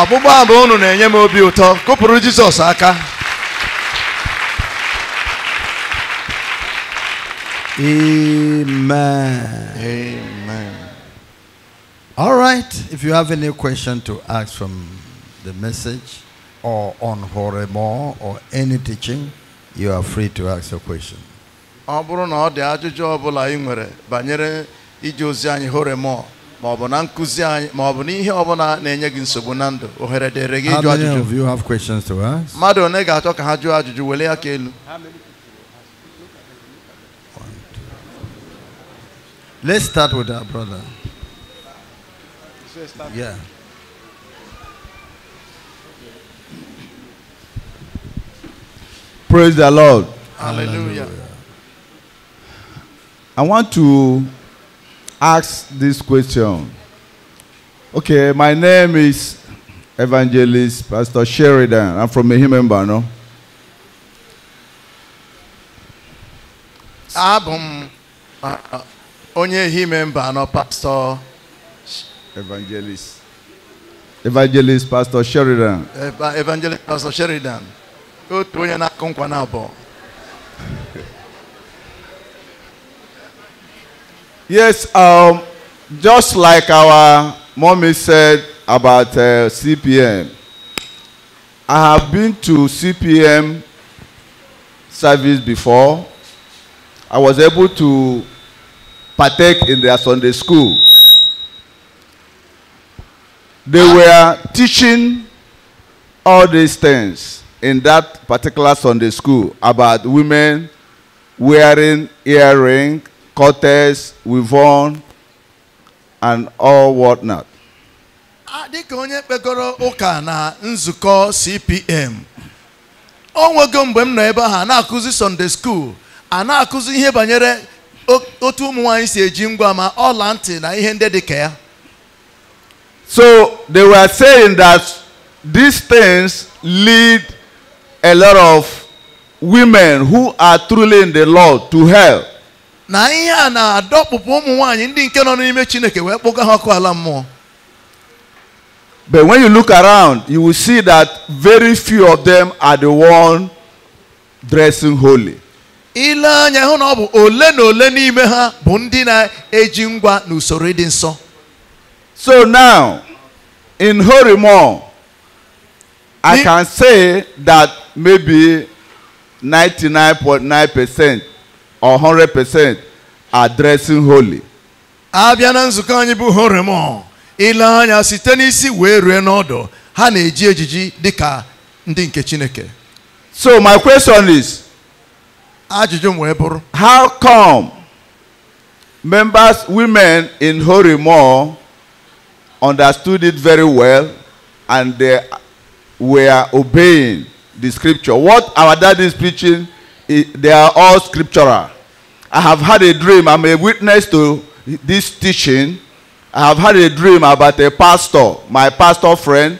ọgbụgbọ abụ unu na-enye m obi ụtọ kụpụrụ jizọs aka Amen. Amen. All right. If you have any question to ask from the message or on Horemo or any teaching, you are free to ask your question. ọ bụrụ na ọ dị ajụjụ ọ bụla ị nwere banyere ije ozi anyị horemo maọbụ na nkụzi anyị maọbụ na ihe ọbụla na-enye gị nsogbu na ndụ ohere dịrị gị ajụjụ mmadụ one ga-achọ ka ha jụọ ajụjụ ya ka elu Let's start with our brother. Yeah. Praise the Lord. Hallelujah. I want to ask this question. Okay, my name is Evangelist Pastor Sheridan. I'm from Mehimemba, no? Abum uh, uh, onye Himemba, no, Pastor. Evangelist. Evangelist Pastor Sheridan. Evangelist Pastor Sheridan. Otu onye na-akụ na abụọ. Yes, um, just like our mommy said about uh, CPM, I have been to CPM service before. I was able to partake in their Sunday school. They were teaching all these things in that particular Sunday school about women wearing earring Cortez, Wivon, and all whatnot. dịka onye kpekọrọ ụka na nzukọ CPM o nwego mgbe m nọ ebe ahụ a na-akụzi Sunday school a na-akụzi ihe banyere otu ụmụ nwanyị si eji ngwa ma ọla ntị na ihe ndị dịka ya so they were saying that these things lead a lot of women who are truly in the Lord to hell na ihe a na-adọkpụpụ ụmụ nwanyị ndị nke nọ n'ime Chineke wee kpụga ha ọkụ ala mmụọ But when you look around, you will see that very few of them are the one dressing holy. Ile anya hụ na ọ bụ ole na ole n'ime ha bụ ndị na-eji ngwa n'usoro ịdị nsọ. So now, in Horimo, I can say that maybe 99.9 percent 100% addressing holy. abịa na nzukọ anyị bụ horemon ile anya site n'isi wee rue n'ọdụ ha na-eji ejiji dịka ndị nke chineke so my question is ajụjụ m wee bụrụ how come members women in horemon understood it very well and they were obeying the scripture what our daddy is preaching they are all scriptural. I have had a dream. I'm a witness to this teaching. I have had a dream about a pastor, my pastor friend.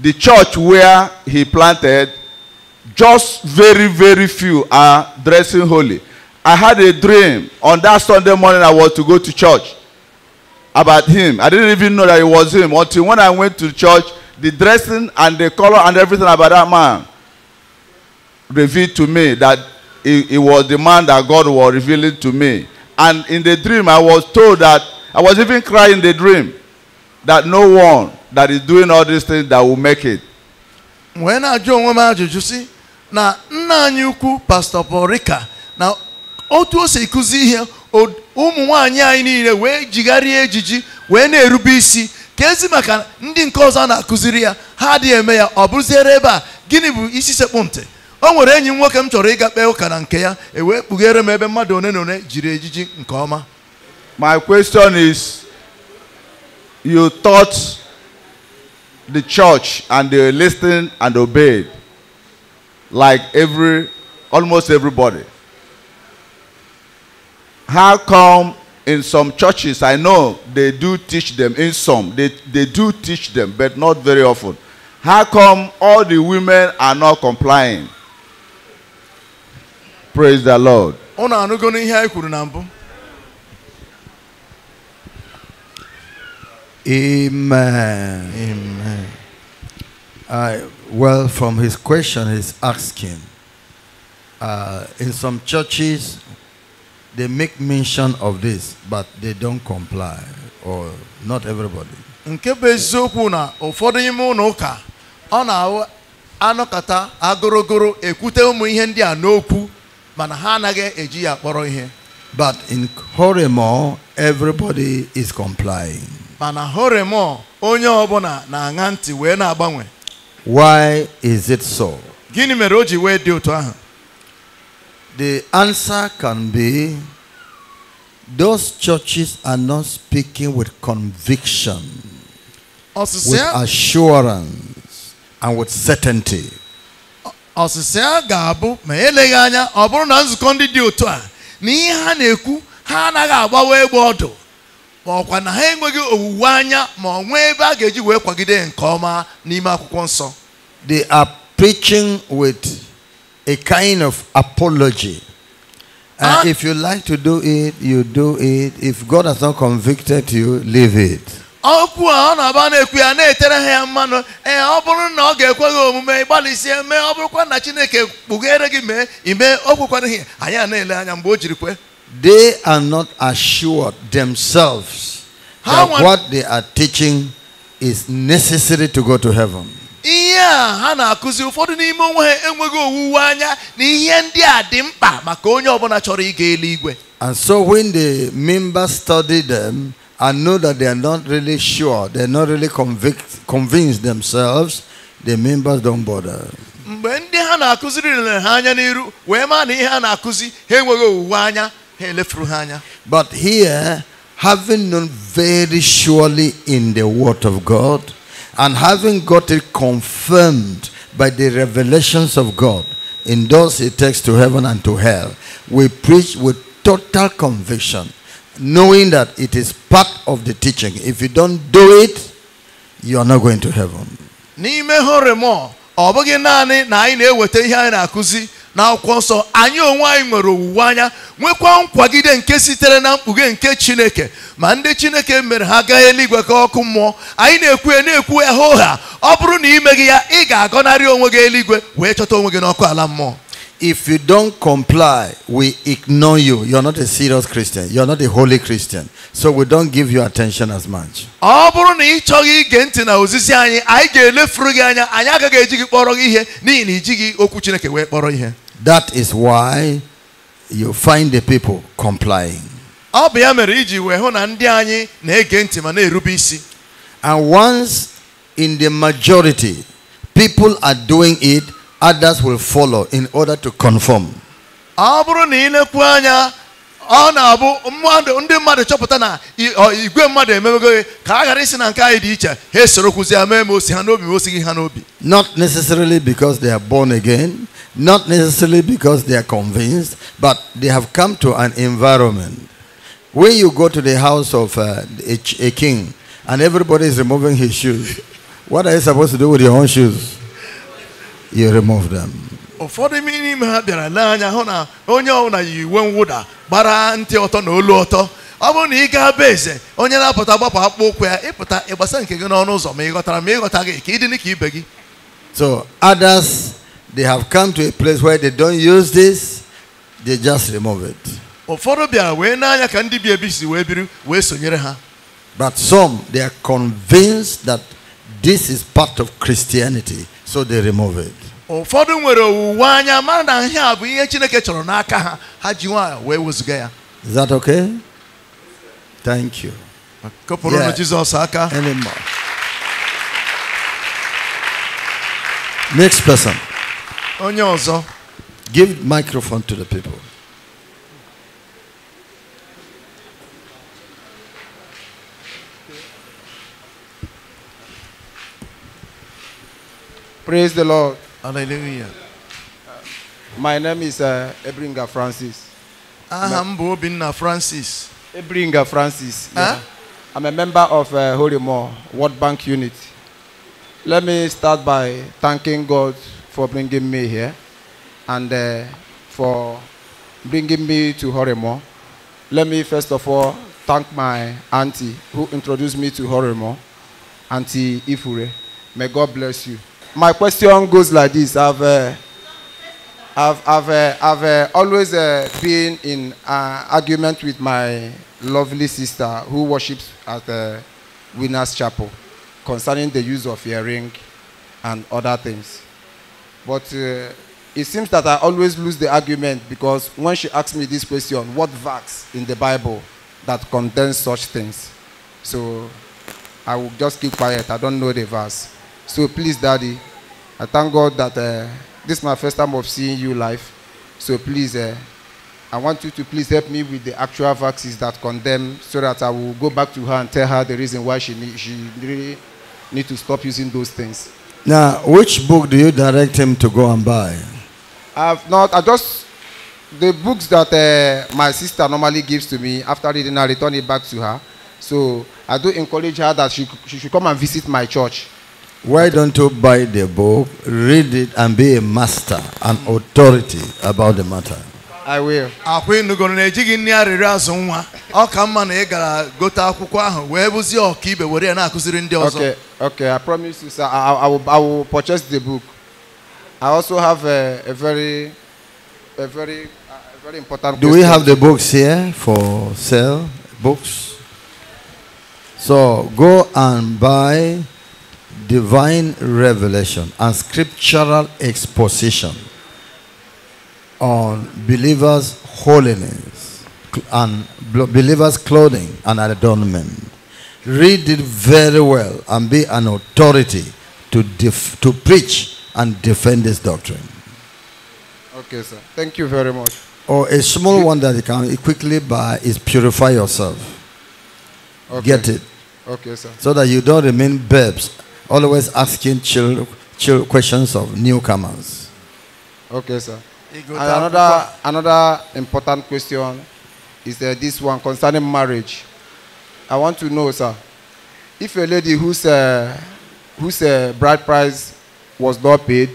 The church where he planted, just very, very few are dressing holy. I had a dream on that Sunday morning I was to go to church about him. I didn't even know that it was him until when I went to church, the dressing and the color and everything about that man revealed to me that it, was the man that God was revealing to me. And in the dream, I was told that I was even crying the dream that no one that is doing all these things that will make it. When I join, when I ajụjụ you see, now, anyị ukwu Pastor pọrika Now, otu se si kụzi ihe ụmụ nwaanyị anyị niile wee jigharịa ejiji wee na-erube isi ka ezi maka ndị nke ọzọ na-akụziri ya a gịnị bụ o nwere enyi m nwoke m chọrọ ịga kpee ụka na nke ya e wee kpughere m ebe mmadụ one na one jiri ejiji nke ọma my question is you taught the church and they listened and obeyed like every almost everybody how come in some churches i know they do teach them in some they, they do teach them but not very often how come all the women are not complying Praise the Lord. Unu anụgo n'ihe anyị kwuru na mbụ? Amen. Amen. I, well, from his question, he's asking. Uh, in some churches, they make mention of this, but they don't comply, or not everybody. nke bụ eziokwu na ụfọdụ ime ụlọ ụka ọ na anọkata agorogoro ekwute ụmụ ihe ndị a n'okwu mana ha anaghị eji ya kpọrọ ihe but in Horemo everybody is complying mana Horemo onye ọbụla na-aṅa ntị wee na-agbanwe why is it so gịnị mere o ji wee dị otu ahụ the answer can be those churches are not speaking with conviction with assurance and with certainty ga-abụ ma eleghị anya ọ bụrụ na nzukọ ndị dị otu a na ihe ha na-ekwu ha anaghị agbawa egbe ọdụ ọkwa na ha enweghị owuwe anya ma ọ nwee ebe a ga-eji wee kwagide nke ọma n'ime akwụkwọ nsọ they are preaching with a kind of apology and ah! if you like to do it you do it if God has not convicted you leave it okwu ọ na-aba na-ekwu ya na-etere ha ya mmanụ ee ọ bụrụ na ọ ga-ekwe gị omume ịgbalịsie mee ọ bụrụkwa na Chineke kpughere gị mee ime o kwekwaraghị anyị a na-ele anya mgbe o jiri kwe they are not assured themselves that what they are teaching is necessary to go to heaven ihe a ha na-akụzi ụfọdụ n'ime onwe ha enweghị owuwe anya na ihe ndị a dị mkpa maka onye ọbụla chọrọ ịga eluigwe and so when the members study them I know that they are not really sure, they're not really convict, convinced themselves, the members don't bother. mgbe ndị ha na-akụziri lere ha anya n'iru wee maa na ihe ha na-akụzi ha enweghị owuwe anya ha elefuru ha anya but here having known very surely in the word of god and having got it confirmed by the revelations of god in those it takes to heaven and to hell we preach with total conviction knowing that it is part of the teaching. If you don't do it, you are not going to heaven. N'ime horemọ ọ bụghị naanị na anyị na-eweta ihe anyị na-akụzi akwụkwọ nsọ anyị onwe anyị nwere owuwe anya nwekwa nkwagide nke sitere na mkpughe nke Chineke ma ndị Chineke mere ha gaa eluigwe ka ọkụ mmụọ anyị na-ekwu ya na-ekwu ya hoo ha ọ bụrụ na imeghị ya ị ga-agọnarị onwe gị eluigwe wee chọta onwe gị n'ọkụ ala mmụọ If you don't comply, we ignore you. You're not a serious Christian. You're not a holy Christian. So we don't give you attention as much. That is why you find the people complying. And once in the majority, people are doing it others will follow in order to conform. na-abụ mmadụ na igwe mmadụ ka na osi not necessarily because they are born again not necessarily because they are convinced but they have come to an environment when you go to the house of uh, a, a king and everybody is removing his shoes what are you supposed to do with your own shoes you remove them. ụfọdụ n'ime ha bịara n'anya hụ na onye ọbụla yi uwe mwụda gbara ntị ọtọ na olu ọtọ ọ bụrụ na ị gaa be eze onye na-apụta gbapụ akpụkpọ ụkwụ ya ịpụta ịgbasa nke gị n'ọnụ ụzọ ma ị ghọtara ma ị ghọta gị ka ibe gị so others they have come to a place where they don't use this they just remove it ụfọdụ bịara wee n'anya ka ndị bi ebi si wee biri wee sonyere ha but some they are convinced that this is part of christianity so they remove it. ụfọdụ nwere owuwe anya mara na ihe a bụ ihe chineke chọrọ n'aka ha ha ji wee wezụga ya Is that okay? Thank you. Kopụrụnụ Jizọs aka. Anymore. Next person. Onye ọzọ. Give microphone to the people. Praise the Lord. Hallelujah. My name is uh, Ebringa Francis. Ah, I'm Bobina Francis. Ebringa Francis. Huh? I'm a member of uh, Holy More World Bank Unit. Let me start by thanking God for bringing me here and uh, for bringing me to Horemo. Let me first of all thank my auntie who introduced me to Horemo, Auntie Ifure. May God bless you my question goes like this. I've, uh, I've, I've, uh, I've uh, always uh, been in uh, argument with my lovely sister who worships at the Winners Chapel concerning the use of earring and other things. But uh, it seems that I always lose the argument because when she asks me this question, what verse in the Bible that contains such things? So I will just keep quiet. I don't know the verse. So please, Daddy, I thank God that uh, this is my first time of seeing you live. So please, uh, I want you to please help me with the actual vaccines that condemn, so that I will go back to her and tell her the reason why she need, she really need to stop using those things. Now, which book do you direct him to go and buy? I've not. I just the books that uh, my sister normally gives to me after reading, I return it back to her. So I do encourage her that she, she should come and visit my church Why don't you buy the book, read it, and be a master, an authority about the matter? I will. Akwa ịnụgoro na ejighị nri arịrịọ azụ nwa. Ọ ka mma na ị gara gote akwụkwọ ahụ wee bụzie ọkaibe were ya na-akụziri ndị ọzọ. Okay, okay, I promise you sir, I, I, will, I will purchase the book. I also have a, a very, a very, a very important. Do we have the books here for sale? Books. So go and buy. divine revelation and scriptural exposition on believers' holiness and believers' clothing and adornment. Read it very well and be an authority to, to preach and defend this doctrine. Okay, sir. Thank you very much. Or oh, a small one that you can quickly buy is purify yourself. Okay. Get it. Okay, sir. So that you don't remain babes always asking chill, chill questions of newcomers. Okay, sir. Another, another important question is uh, this one concerning marriage. I want to know, sir, if a lady whose, uh, whose uh, bride price was not paid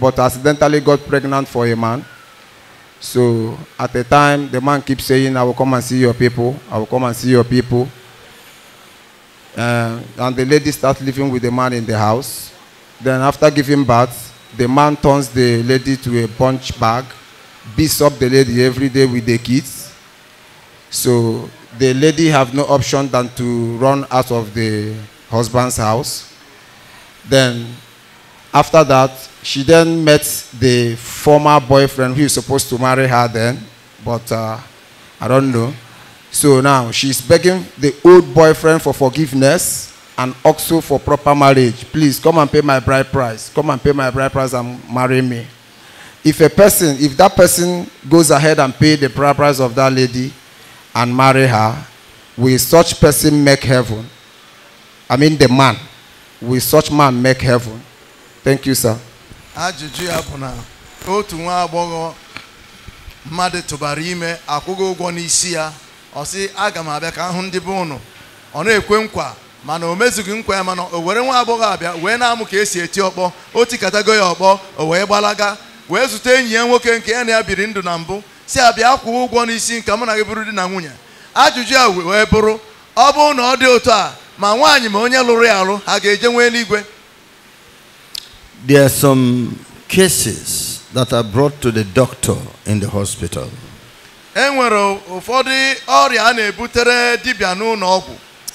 but accidentally got pregnant for a man, so at the time the man keeps saying, I will come and see your people, I will come and see your people, uh, and the lady starts living with the man in the house. Then after giving birth, the man turns the lady to a punch bag, beats up the lady every day with the kids. So the lady have no option than to run out of the husband's house. Then after that, she then met the former boyfriend who is supposed to marry her then, but uh, I don't know. So now she's begging the old boyfriend for forgiveness and also for proper marriage. Please come and pay my bride price. Come and pay my bride price and marry me. If a person, if that person goes ahead and pay the bride price of that lady and marry her, will such person make heaven? I mean the man. Will such man make heaven? Thank you, sir. Ajụjụ ya ọ sị aga m abịa ka ahụ hụ ndị be ụnụ ọ na-ekwe nkwa mana o mezughị nkwa ya mana o were nwa agbọghọ abịa wee na-amụ ka esi eti ọkpọ o tikatago ya ọkpọ o wee gbalaga wee zute enyi ya nwoke nke ya na ya biri ndụ na mbụ si abịa kwụọ ụgwọ n'isi nke mụ na gị bụrụ di na nwunye ajụjụ ya wee bụrụ ọ bụrụ na ọ dị otu a ma nwaanyị ma onye lụrụ ya alụ ha ga-eje nwee n'igwe. There are some cases that are brought to the doctor in the hospital. enwere ụfọdụ ọrịa a na-ebutere dibịa n'ụlọ ọgwụ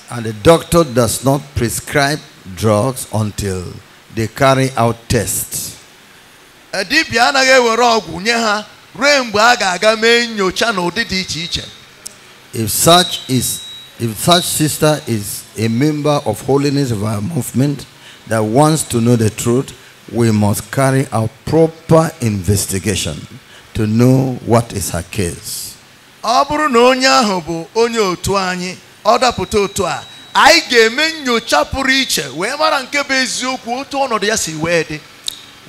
and the doctor does not prescribe drugs until they carry out tests dibịa anaghị ewere ọgwụ nye ha ruo mgbe a ga-aga mee nyocha n'ụdị dị iche iche if such is if such sister is a member of holiness of our movement that wants to know the truth we must carry out proper investigation to know what is her case. ọ bụrụ na onye ahụ bụ onye otu anyị ọ dapụta otu a anyị ga-eme pụrụ iche wee mara nke bụ eziokwu otu ọnọdụ ya si wee dị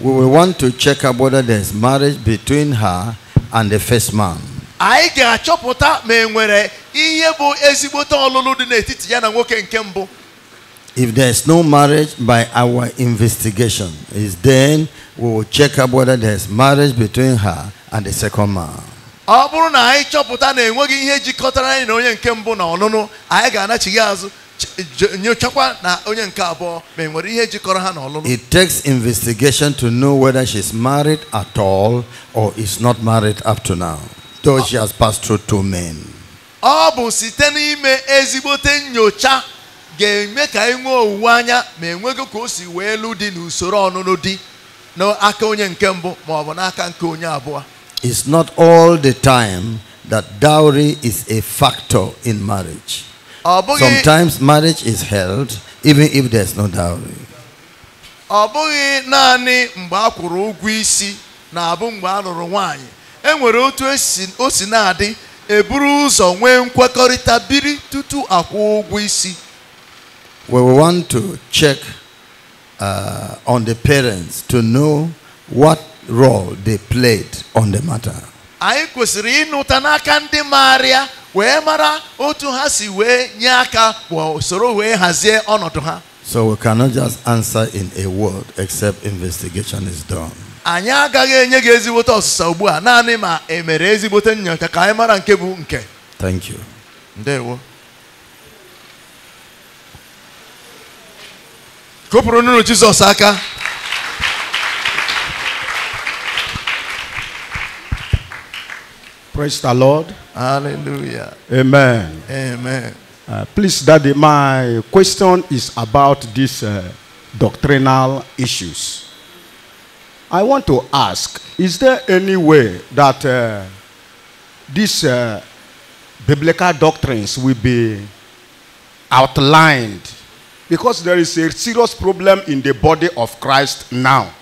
we will want to check up whether there is marriage between her and the first man. anyị ga-achọpụta ma e nwere ihe bụ ezigbote ọlụlụ dị n'etiti ya na nwoke nke mbụ If there is no marriage by our investigation, is then we will check up whether there is marriage between her and the second man. ọ bụrụ na anyị chọpụta na enweghị ihe jikọtara anyị na onye nke mbụ na ọnụnụ anyị ga-anachighi azụ nyochakwa na onye nke abụọ ma enwere ihe jikọrọ ha na ọlụlụ it takes investigation to know whether she is married at all or is not married up to now though she has passed through two men ọ bụ site n'ime ezigbote nyocha ga-eme ka anyị nwee owuwe anya ma enweghị ka o si wee lụ dị n'usoro ọnụnụ di n'aka onye nke mbụ ma ọ bụ n'aka nke onye abụọ it's not all the time that dowry is a factor in marriage. Sometimes marriage is held even if there's no dowry. we want to check uh, on the parents to know what role they played on the matter. anyị kwesịrị ịnụta n'aka ndị maara ya wee mara otu ha si wee nye aka usoro wee hazie ọnọdụ ha so we cannot just answer in a word except investigation is done anyị agaghị enye gị ezigbote ọsịsa ugbu a naanị ma e mere ezigbote nnyocha ka anyị mara nke bụ nke thank you ndewo kụpụrụ Jizọs aka Praise the Lord. Hallelujah. Amen. Amen. Uh, please, Daddy, my question is about these uh, doctrinal issues. I want to ask Is there any way that uh, these uh, biblical doctrines will be outlined? Because there is a serious problem in the body of Christ now.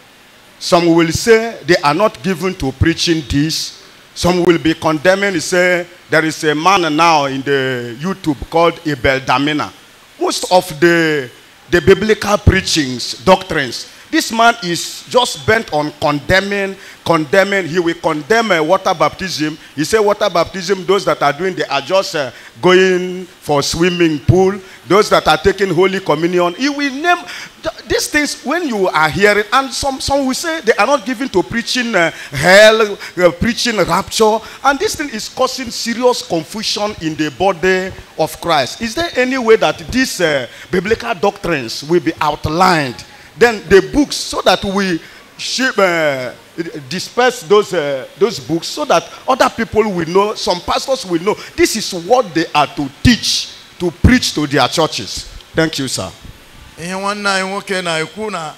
Some will say they are not given to preaching this some will be condemning, say, there is a man now in the YouTube called Abel Damina. Most of the, the biblical preachings, doctrines, this man is just bent on condemning, condemning. He will condemn a uh, water baptism. He said water baptism, those that are doing, they are just uh, going for swimming pool. Those that are taking Holy Communion. He will name th these things when you are hearing. And some, some will say they are not given to preaching uh, hell, uh, preaching rapture. And this thing is causing serious confusion in the body of Christ. Is there any way that these uh, biblical doctrines will be outlined Then the books, so that we ship, uh, disperse those, uh, those books, so that other people will know, some pastors will know. This is what they are to teach, to preach to their churches. Thank you, sir. ihe nwanne anyị nwoke na-ekwu na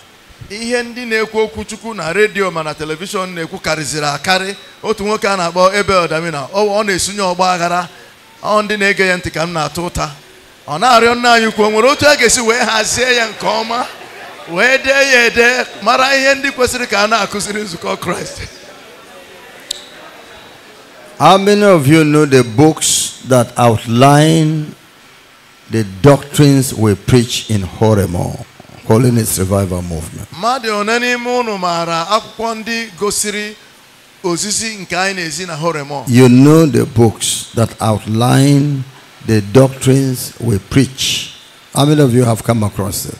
ihe ndị na-ekwu okwuchukwu na redio mana na telivishọn na-ekwu kariziri akarị otu nwoke a na-akpọ ebe Damina ọ na-esunye ọgba aghara ọ ndị na-ege ya ntị ka m na-atụ ụta ọ na-arịọ nna anyị ukwu nwere otu a ga-esi wee hazie ya nke ọma wee dee mara ihe ndị kwesịrị ka a na-akụziri nzukọ kraịst How many of you know the books that outline the doctrines we preach in Horemo, Holiness Revival Movement? You know the books that outline the doctrines we preach. How many of you have come across it?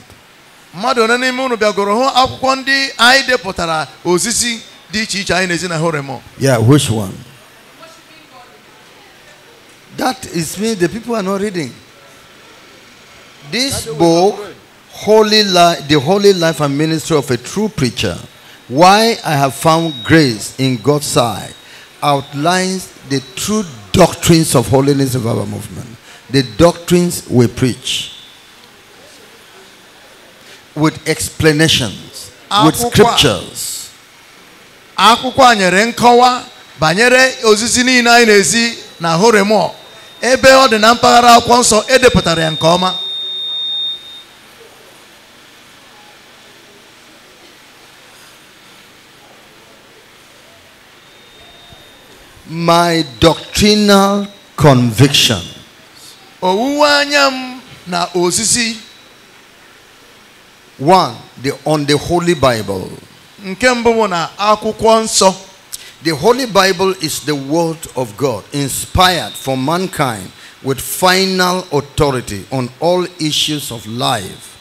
mmadụ one n'ime unu bịagoro hụ akwụkwọ ndị anyị depụtara osisi dị iche iche anyị na-ezi na yeah which one that is me the people are not reading this book holy life the holy life and ministry of a true preacher why i have found grace in god's sight outlines the true doctrines of holiness of our movement the doctrines we preach with explanations, with scriptures. akwụkwọ a nyere nkọwa banyere ozizi niile anyị na-ezi na horemọ ebe ọ dị na mpaghara akwụkwọ nsọ edepụtara ya nke ọma my doctrinal conviction owuwe anya m na ozizi One, the, on the Holy Bible. Nke mbụ bụ na akwụkwọ The Holy Bible is the word of God, inspired for mankind with final authority on all issues of life,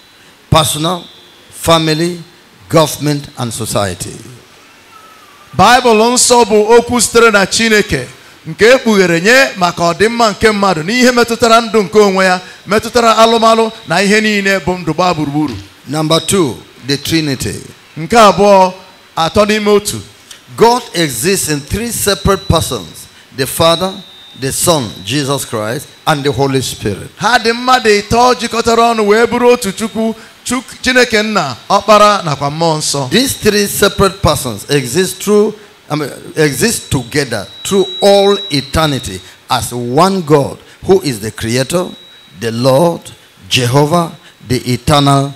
personal, family, government and society. Bible nsọ bụ okwu sitere na Chineke nke ekpughere nye maka ọdịmma nke mmadụ n'ihe metụtara ndụ nke onwe ya, metụtara alụmalụ na ihe niile bụ ndụ gbaa gburugburu. Number two, the Trinity. God exists in three separate persons: the Father, the Son, Jesus Christ, and the Holy Spirit. Ha dị mmadụ ịtọ jikọtara ọnụ wee bụrụ otu These three separate persons exist through I mean, exist together through all eternity as one God who is the creator, the Lord, Jehovah, the eternal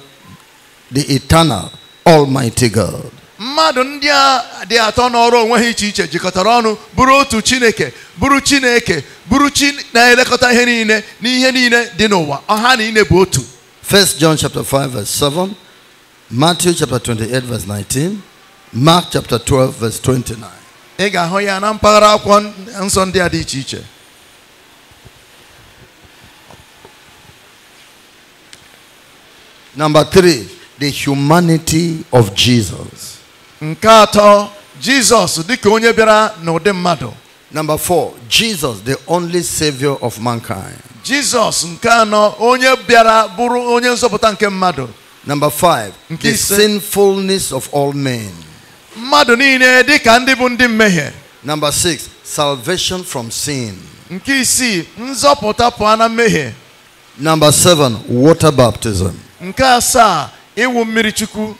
the eternal almighty God. mmadụ ndị a dị atọ n'ọrụ onwe ha iche iche jikọtara ọnụ bụrụ otu chineke bụrụ chineke bụrụ chi na-elekọta ihe niile n'ihe niile dị n'ụwa ọha niile bụ otu 1 John chapter 5 verse 7 Matthew chapter 28 verse 19 Mark chapter 12 verse 29 ị ga-ahụ ya na mpaghara akwụkwọ nsọ ndị a dị iche iche Number 3 the humanity of Jesus. Jesus Number four, Jesus, the only savior of mankind. Jesus onye bịara bụrụ onye nke mmadụ. Number five, the sinfulness of all men. Mmadụ dịka ndị bụ ndị Number six, salvation from sin. Number seven, water baptism. ịwụ mmiri chukwu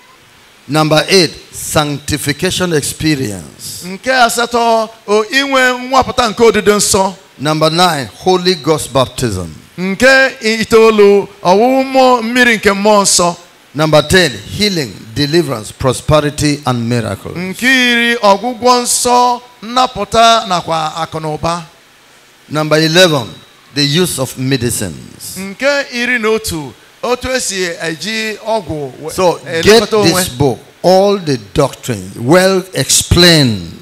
Number eight, sanctification experience. Nke asatọ, inwe nwapụta nke odide nsọ. Number nine, Holy Ghost baptism. Nke itoolu, ọwụwụ mmiri nke mmụọ nsọ. Number ten, healing, deliverance, prosperity and miracles. Nke iri, ọgwụgwọ nsọ, nnapụta nakwa akụnụba. Number eleven, the use of medicines. Nke iri na otu, Oh, oh, so eh, get this book, all the doctrine well explained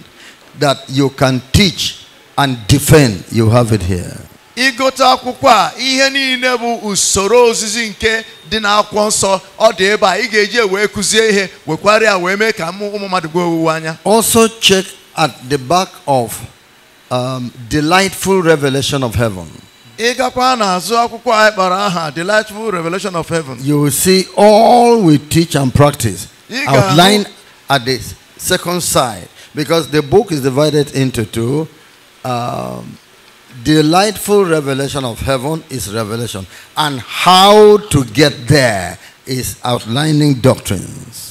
that you can teach and defend. You have it here. akwụkwọ a ihe niile bụ usoro ozizi nke dị n'akwụkwọ nsọ ọ dị ebe a ị ga-eji wee kụzie ihe wee mee ka ụmụ mmadụ owuwe anya also check at the back of um, delightful revelation of heaven Delightful Revelation of Heaven. You will see all we teach and practice outlined at the second side because the book is divided into two. Um, delightful revelation of heaven is revelation, and how to get there is outlining doctrines.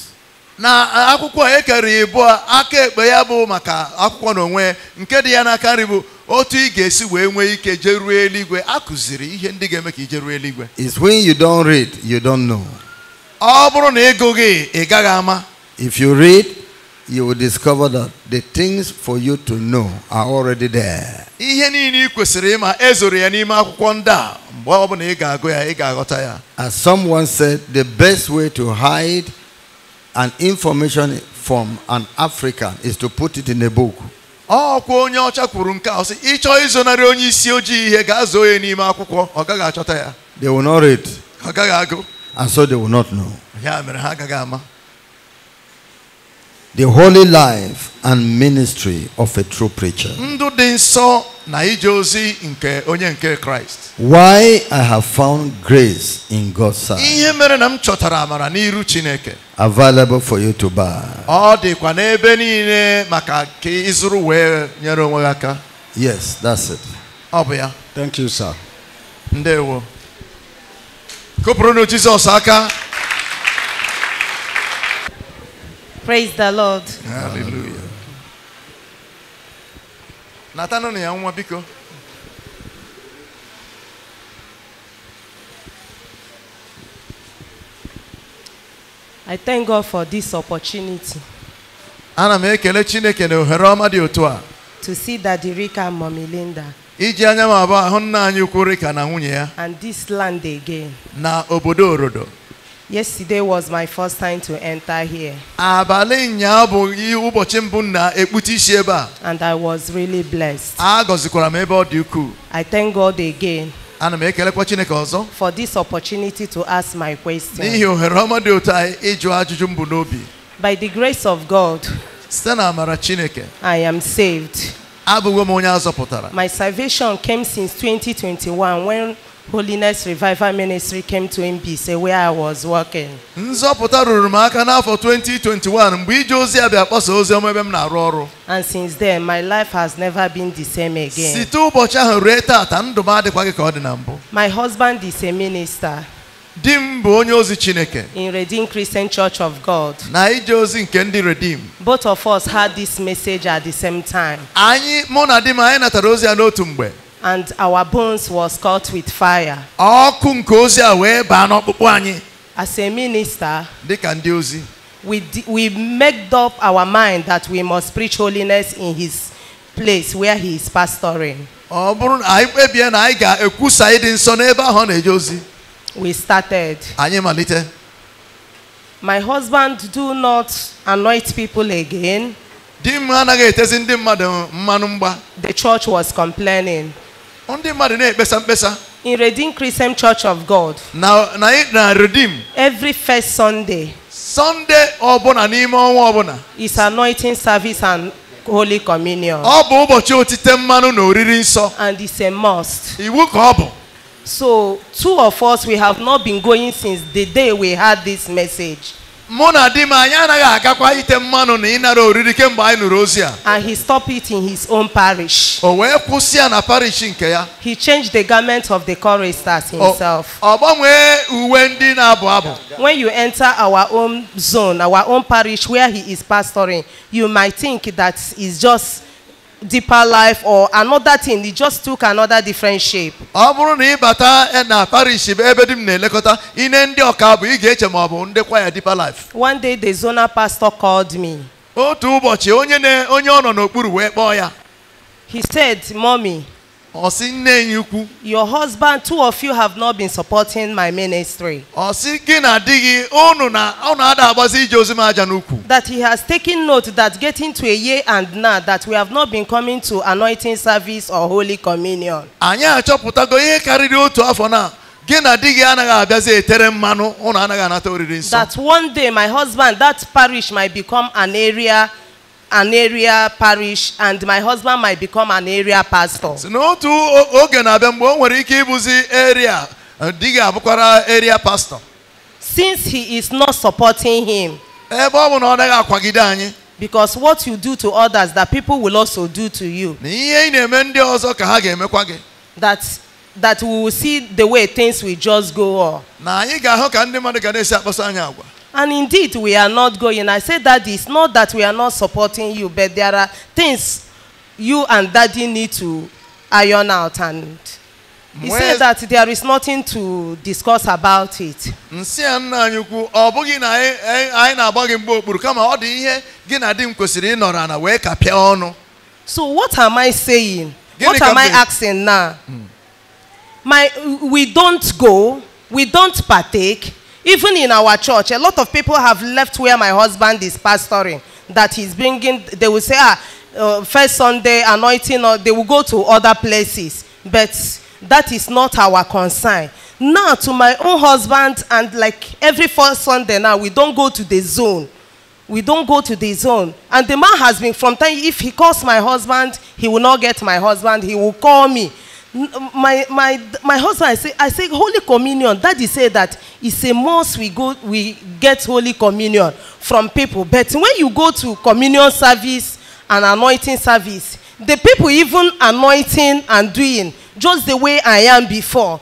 na akwụkwọ ekere ibu a aka ekpe ya bụ maka akwụkwọ n'onwe nke dị ya n'aka nri bụ otu ị ga-esi wee nwee ike jeruo eluigwe a kụziri ihe ndị ga-eme ka i jeruo eluigwe is when you don't read you don't know ọ bụrụ na ịgụghị ị gaghị ama if you read you will discover that the things for you to know are already there ihe niile ị kwesịrị ịma ezoro ya n'ime akwụkwọ ndị a mgbe ọ bụla ị ga-agụ ya ị ga-aghọta ya as someone said the best way to hide an information from an African is to put it in a book ọkwa onye ọcha kwuru nke a sị ịchọ izonarị onye isi ojii ihe ga-azụ onye n'ime akwụkwọ ọ gaghị achọta ya they will not read ọ gaghị agụ and so they will not know ya mere ha agaghị ama the holy life and ministry of a true preacher ndụ dị nsọ Why I have found grace in God's sight. Available for you to buy. Yes, that's it. Thank you, sir. Ndewo. Kụpụrụnụ Jizọs aka. Praise the Lord. Hallelujah. na ya nwa biko I thank God for this opportunity. Ana m ekele Chineke na ohere ọma dị otu a. To see Daddy Rika and Iji anya m abụọ ahụ nna anyị ukwu Rika na nwunye ya. And this land again. Na obodo Orodo. Yesterday was my first time to enter here. And I was really blessed. I thank God again. For this opportunity to ask my question. By the grace of God. I am saved. My salvation came since 2021 when Holiness Revival Ministry came to Mbise where I was working. Nzọpụta ruru m aka n'afọ 2021 mgbe ije ozi a bịa kpọsa ozi ọma ebe m na-arụ ọrụ. And since then my life has never been the same again. Site ụbọchị ahụ ruo taata ndụ m adịkwa gị ka ọ dị na mbụ. My husband is a minister. Di m bụ onye ozi Chineke. In Redeemed Christian Church of God. Na ije ozi nke ndị Redeem. Both of us had this message at the same time. Anyị mụ na di m anyị natara ozi ya n'otu mgbe and our bones was caught with fire. ọkụ nke ozi a wee baa n'ọkpụkpụ anyị. as a minister. dịka ndị ozi. we we made up our mind that we must preach holiness in his place where he is pastoring. ọ bụrụ na anyị kpebie na anyị ga-ekwusa ịdị nsọ n'ebe ahu ọ na-eje ozi. we started. anyị malite. my husband do not anoint people again. The church was complaining. ndị mmadụ na-ekpesa mkpesa in Redeem Christian Church of God. Na na na Redeem. Every first Sunday. Sunday ọbụla n'ime ọnwa ọbụla. Is anointing service and holy communion. Ọ bụ ụbọchị otite mmanụ na oriri nsọ. And it's a must. Iwu ka ọ bụ. So two of us we have not been going since the day we had this message mụ na di m anyị anaghị agakwa ite mmanụ na ịnara oriri kemgbe anyị nụrụ ozi a and he stopped it in his own parish o wee kwụsị ya na parish nke ya he changed the garment of the choristers himself ọ gbanwee uwe ndị na-abụ abụ when you enter our own zone our own parish where he is pastoring you might think that is just deeper life or another thing it just took another different shape. ọ bụrụ na ịbata na parish ebe di m na-elekọta ihe ndị ọka bụ ị ga-eche ma ọ bụ ndị kwaya deeper life. one day the zonal pastor called me. otu ụbọchị onye ọ nọ n'okpuru wee kpọọ ya. he said mommy. Ọ̀sìn nne yín kú. Your husband, two of you have not been supporting my ministry. Ọ̀sìn gị na di na unu ada agbasi ije ozi m aja n'ukwu. That he has taken note that getting to a year and now that we have not been coming to anointing service or holy communion. Anyị achọpụtago ihe karịrị otu afọ na gị na anaghị abịazi etere mmanụ unu anaghị anata oriri nsọ. That one day my husband that parish might become an area. an area parish and my husband might become an area pastor. n'otu oge na-abịa mgbe o nwere ike ịbụzi area eh, di gị abụkwara area pastor. since he is not supporting him. ebe ọ bụ na ọ naghị akwagide anyị. because what you do to others that people will also do to you. na ihe ị na-eme ndị ọzọ ka ha ga-emekwa gị. that that we will see the way things will just go on. na anyị ga-ahụ ka ndị mmadụ ga na-esi anyị agwa. And indeed, we are not going. I say that it's not that we are not supporting you, but there are things you and daddy need to iron out. And he Mwes... said that there is nothing to discuss about it. Nsị nna anyị kwu, ọ bụghị na anyị na-agba gị mgbe okpuru kama ọ dị ihe gị na di m kwesịrị ịnọrọ ana wee kapịa ọnụ. So what am I saying? What am I asking now? Hmm. My, we don't go, we don't partake, Even in our church, a lot of people have left where my husband is pastoring, that he's bringing, they will say, ah, uh, first Sunday anointing, or they will go to other places. But that is not our concern. Now, to my own husband, and like every first Sunday now, we don't go to the zone. We don't go to the zone. And the man has been from time, if he calls my husband, he will not get my husband, he will call me. my my my husband I say I say Holy Communion daddy say that it's a must we go we get Holy Communion from people but when you go to communion service and anointing service the people even anointing and doing just the way I am before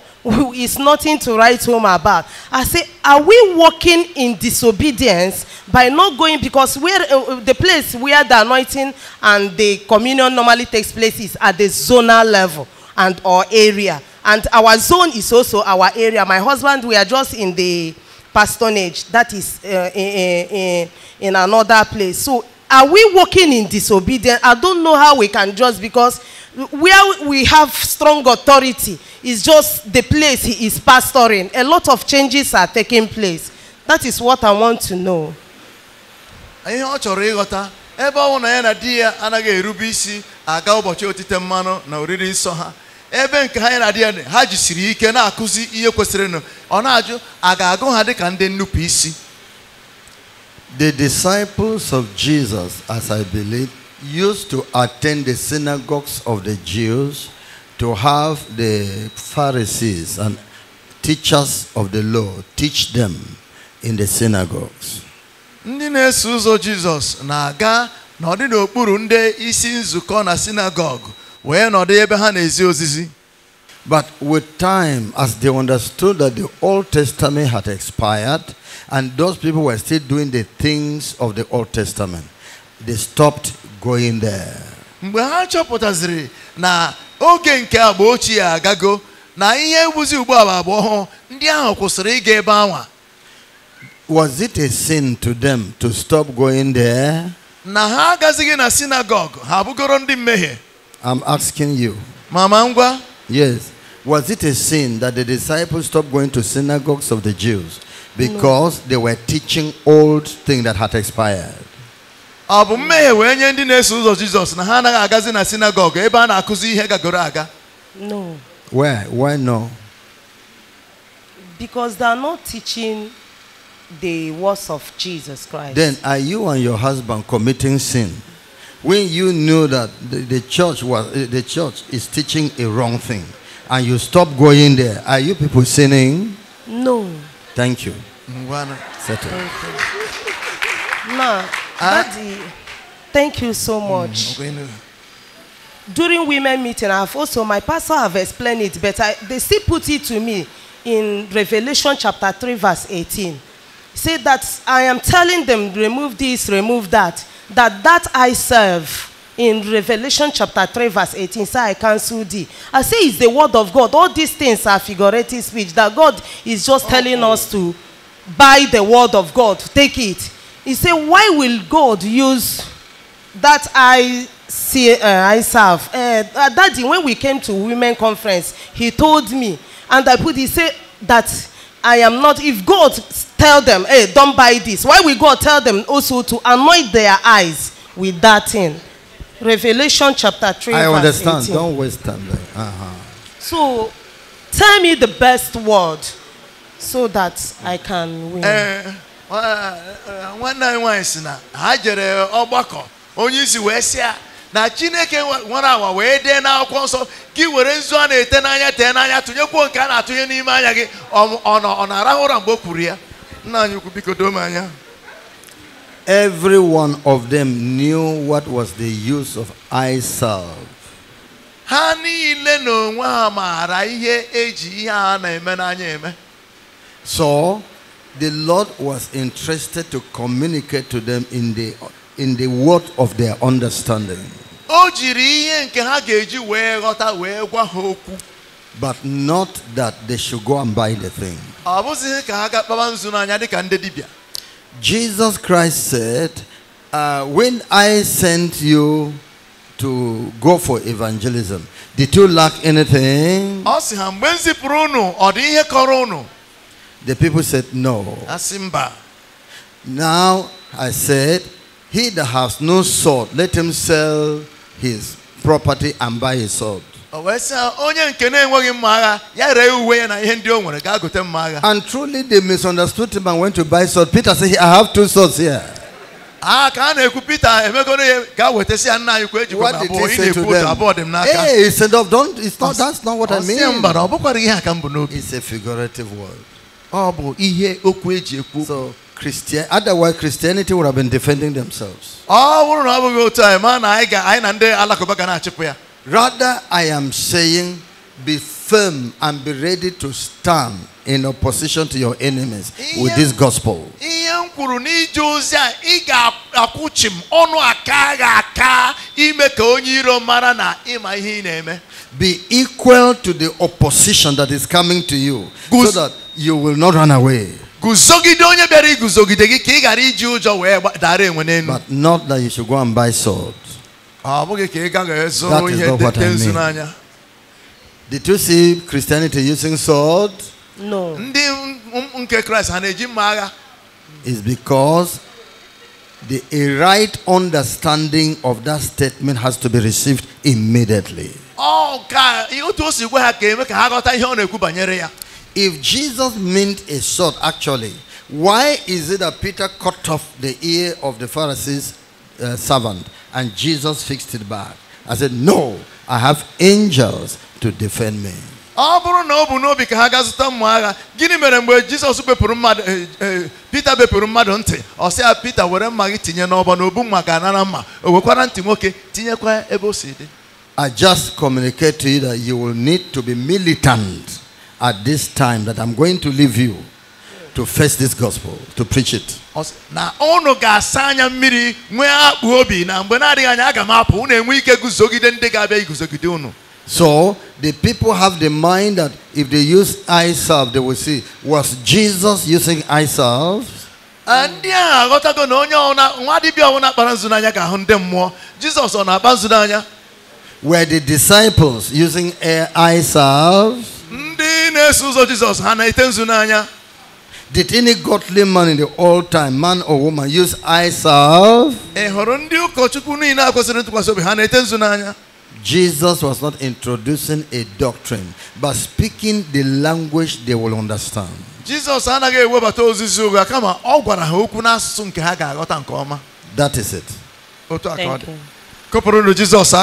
is nothing to write home about. I say, are we walking in disobedience by not going because where uh, uh the place where the anointing and the communion normally takes place is at the zonal level and our area. And our zone is also our area. My husband, we are just in the pastonage. That is uh, in, in, in another place. So are we working in disobedience? I don't know how we can just because where we have strong authority is just the place he is pastoring. A lot of changes are taking place. That is what I want to know. ihe ọ chọrọ ịghọta ebe ọ na ya na di ya anaghị erube isi aga ụbọchị otite mmanụ na oriri nsọ ha ebe nke ha anyị na-adị ha jisiri ike na-akụzi ihe kwesịrịnụ ọ na-ajụ a ga-agụ ha dịka ndị nnupụ isi The disciples of Jesus, as I believe, used to attend the synagogues of the Jews to have the Pharisees and teachers of the law teach them in the synagogues. Ndị na-eso ụzọ Jizọs na-aga n'ọdị n'okpuru ndị isi nzukọ na sinagogu wee nọdụ ebe ha na-esi But with time, as they understood that the Old Testament had expired and those people were still doing the things of the Old Testament, they stopped going there. mgbe ha chọpụtaziri na oge nke agba ochie agago na ihe ugbu a agba ọhụụ ndị ahụ kwụsịrị ịga ebe anwa was it a sin to them to stop going there na ha agazighị na sinagog ha abụgoro ndị mmehie I'm asking you. Mama Yes. Was it a sin that the disciples stopped going to synagogues of the Jews because no. they were teaching old things that had expired? Abu, bụ mmehie wee nye ndị na-eso ụzọ jizọs na ha agazi na synagogue. ebe na-akụzi ihe gagoro aga no why why no because they are not teaching the words of jesus christ then are you and your husband committing sin when you knew that the, the church was eh, the church is teaching a wrong thing, and you stop going there, are you people sinning? No. Thank you. Settle. No, ah. Daddy, thank you so mm, much. During women meeting, I've also my pastor have explained it, but I, they still put it to me in Revelation chapter three, verse eighteen. Say that I am telling them remove this, remove that. that that I serve in Revelation chapter 3, verse 18, say, I cancel thee. I say it's the word of God. All these things are figurative speech that God is just okay. telling us to buy the word of God, take it. He said, Why will God use that I see, uh, I serve? Uh, uh, Daddy, when we came to women conference, he told me, and I put, he said that I am not, if God tell them, hey, don't buy this. Why we go tell them also to anoint their eyes with that thing? Revelation chapter 3. I understand. Don't waste time there. Uh-huh. So tell me the best word so that I can win. Uh, nwanne anyị nwanyị si na ha jere oni onye isi ya na chineke one hour, wee dee n'akwụkwọ nsọ gị a na-ete n'anya tee n'anya tụnyekwuo nke a na-atụnye n'ime anya gị ọ na-arahụ ụra mgbe o ya Every one of them knew what was the use of eye salve. So the Lord was interested to communicate to them in the in the word of their understanding but not that they should go and buy the thing. Jesus Christ said, uh, When I sent you to go for evangelism, did you lack anything? The people said, No. Now I said, He that has no sword, let him sell his property and buy his sword. And truly they misunderstood him and went to buy swords. Peter said, I have two swords here. Ah, what did he say to them? Hey, he said, oh, don't, it's not, that's not what I mean. It's a figurative word. So, Christian, otherwise Christianity would have been defending themselves. Rather, I am saying be firm and be ready to stand in opposition to your enemies with this gospel. Be equal to the opposition that is coming to you so that you will not run away. But not that you should go and buy swords. Ah, that is not what I mean. Did you see Christianity using sword? No. It's um, because the, a right understanding of that statement has to be received immediately. Oh, if Jesus meant a sword, actually, why is it that Peter cut off the ear of the Pharisees servant. And Jesus fixed it back. I said, no, I have angels to defend me. I just communicate to you that you will need to be militant at this time that I'm going to leave you to face this gospel, to preach it. na na So the people have the mind that if they use eye salve, they will see. Was Jesus using eye salve? ndị ahụ go na onye nwa dibịa ọbụla kpara nzu n'anya ga-ahụ ndị mmụọ jizos were the disciples using eye salve Jesus na did any godly man in the old time, man or woman, use I Jesus was not introducing a doctrine, but speaking the language they will understand. Jesus ọ That is it. Thank you. ọ dị. Kụpụrụnụ Jizọs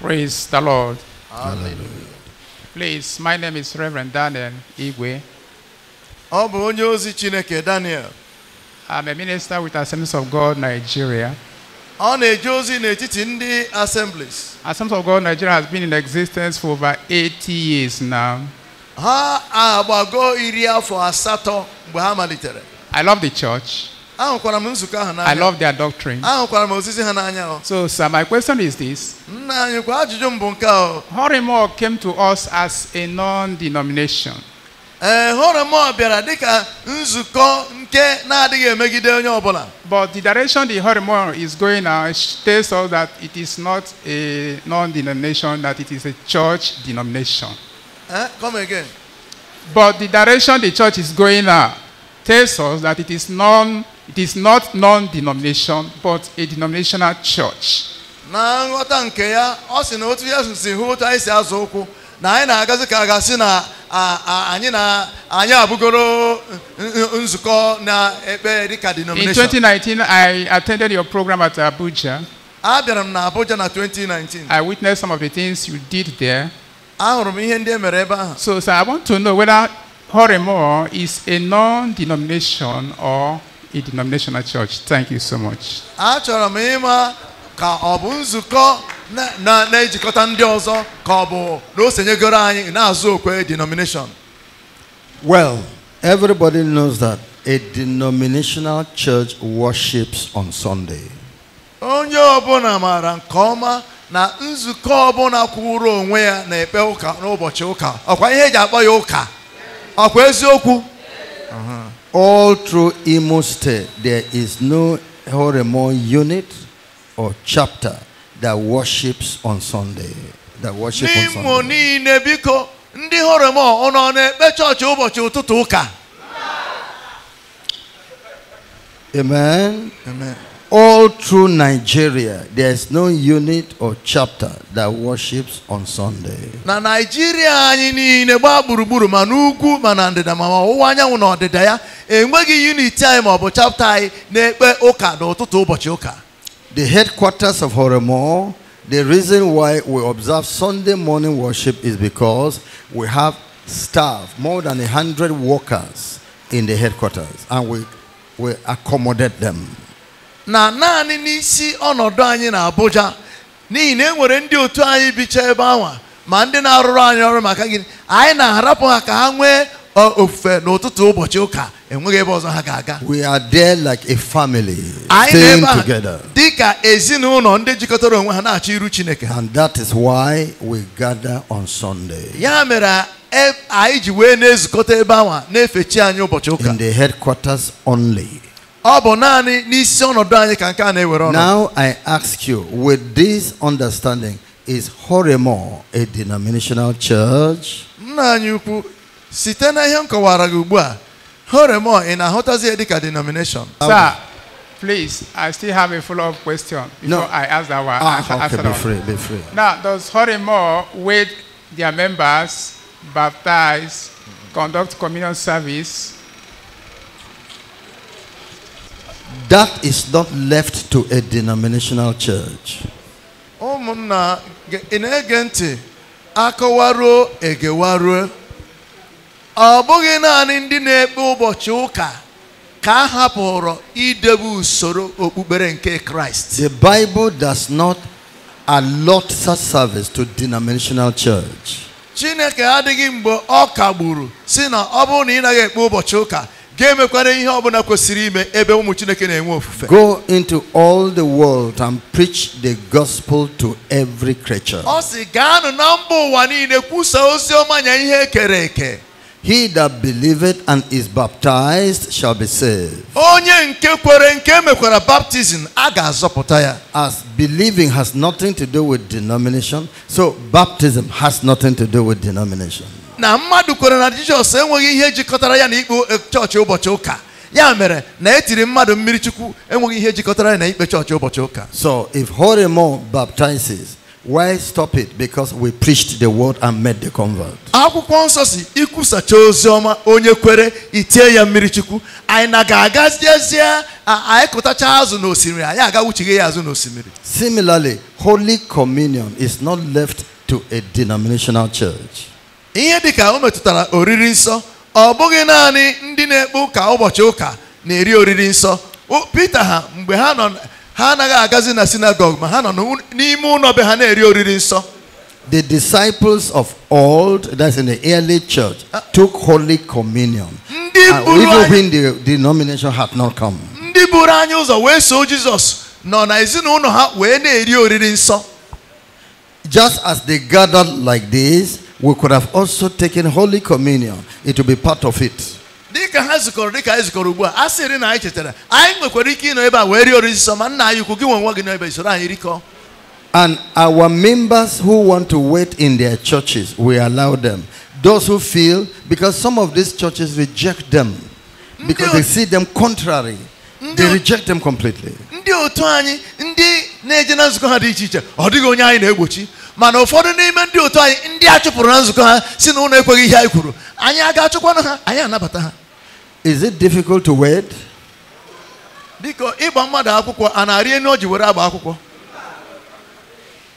Praise the Lord. Hallelujah. Please, my name is Reverend Daniel Igwe. Ọ bụ onye ozi Chineke Daniel. I'm a minister with Assemblies of God Nigeria. Ọ na-eje ozi n'etiti ndị assemblies. Assemblies of God Nigeria has been in existence for over 80 years now. Ha agbago iri afọ asatọ mgbe ha malitere. I love the church. I love their doctrine. So, sir, my question is this Horimor came to us as a non denomination. Eh, but the direction the Horimor is going now tells us that it is not a non denomination, that it is a church denomination. Eh, come again. But the direction the church is going now tells us that it is non it is not non-denomination, but a denominational church. na nghọta nke ya ọ sị na otu si hụ otu anyị si azụ ụkwụ na anyị na-agazi ka a ga-asị na anyị na anyị abụgoro nzukọ na-ekpe dịka denomination. In 2019, I attended your program at Abuja. abịara m na Abuja na 2019. I witnessed some of the things you did there. m ihe ndị e mere ebe ahụ. So, sir, I want to know whether Horemor is a non-denomination or a denominational church. Thank you so much. Achọrọ m ịma ka ọ bụ nzukọ na-ejikọta ndị ọzọ ka ọ bụ na o senyegoro anyị na-azụ okwe denomination. Well, everybody knows that a denominational church worships on Sunday. Onye ọbụla maara nke ọma na nzukọ ọbụla kwụrụ onwe ya na-ekpe ụka n'ụbọchị ụka ọkwa ihe eji akpọ ya ụka ọkwa eziokwu uh-huh. All through Imo State, there is no Horemon unit or chapter that worships on Sunday. That worships on Sunday. Amen. Amen all through Nigeria, there's no unit or chapter that worships on Sunday. Na Nigeria anyị niile gbaa gburugburu ma n'ugwu ma na ndịda ma ọwụwa anyanwụ na ọdịda ya enweghị unit anyị ma ọ bụ chapter anyị na-ekpe ụka n'ụtụtụ ụbọchị ụka. The headquarters of Horemo, the reason why we observe Sunday morning worship is because we have staff, more than hundred workers in the headquarters, and we, we accommodate them. na naanị n'isi ọnọdụ anyị na Abuja n'ihi na e nwere ndị otu anyị bicha ebe anwa ma ndị na-arụrụ anyị ọrụ maka gịnị anyị na-arapụ ha ka ha nwee ofufe n'ụtụtụ ụbọchị ụka enweghị ebe ọzọ ha ga-aga we are there like a family staying together dị ka ezinụlọ ndị jikọtara onwe ha na-achọ iru Chineke and that is why we gather on Sunday ya mere e, anyị ji wee na-ezukọta ebe anwa na-efe chi anyị ụbọchị ụka in the headquarters only Now I ask you, with this understanding, is Horemo a denominational church? Nna anyị na ihe m kọwara gị ugbu a, Horemo denomination? Sir, please, I still have a follow-up question before no. I ask that one. Ah, okay, be free, be free. Now, does Horemo with their members, baptize, conduct communion service, That is not left to a denominational church. Ụmụnna ị na-ege ntị akọwaruo egewaruo ọ bụghị naanị ndị na-ekpe ụbọchị ụka ka a hapụrụ idebe usoro okpukpere nke Kraịst. The Bible does not allot such service to denominational church. Chineke adịghị mgbe ọ kagburu si na ọ bụrụ na ị naghị ekpe ụbọchị ụka Go into all the world and preach the gospel to every creature. He that believeth and is baptized shall be saved. As believing has nothing to do with denomination, so baptism has nothing to do with denomination na mmadụ kwere na jizọs enweghị ihe jikọtara ya na ikpe chọọchị ụbọchị ụka ya mere na etiri mmadụ mmiri chukwu enweghị ihe jikọtara ya na ikpe chọọchị ụbọchị ụka so if horimo baptizes why stop it because we preached the word and made the convert akwụkwọ nsọ si ikwusacha ozi ọma onye kwere itie ya mmiri chukwu anyị na ga-agaziezie anyị kụtacha azụ n'osimiri anyị aga ya azụ n'osimiri similarly holy communion is not left to a denominational church ihe dịka o metụtara oriri nsọ ọ bụghị naanị ndị na-ekpe ụka ụbọchị ụka na-eri oriri nsọ peter ha mgbe ha nọ ha anaghị agazi na sinagog ma ha nọ n'ime ụlọ be ha na-eri oriri nsọ The disciples of old, that's in the early church, ah. took Holy Communion. And ah, even when the denomination had not come. Ndị buru anyị ụzọ wee so Jesus nọ na ezinụlọ ha wee na-eri oriri nsọ. Just as they gathered like this, We could have also taken Holy Communion. It will be part of it. And our members who want to wait in their churches, we allow them. Those who feel, because some of these churches reject them because they see them contrary, they reject them completely. Ndị otu anyị ndị na-eje na nzukọ ha mana ụfọdụ n'ime ndị otu anyị ndị a chụpụrụ na nzukọ ha si na ụlọ ekweghị ihe anyị kwuru anyị aga achụkwanụ ha anyị anabata ha is it difficult to wed biko ịgba mmadụ akwụkwọ a na-arị enu o ji were agba akwụkwọ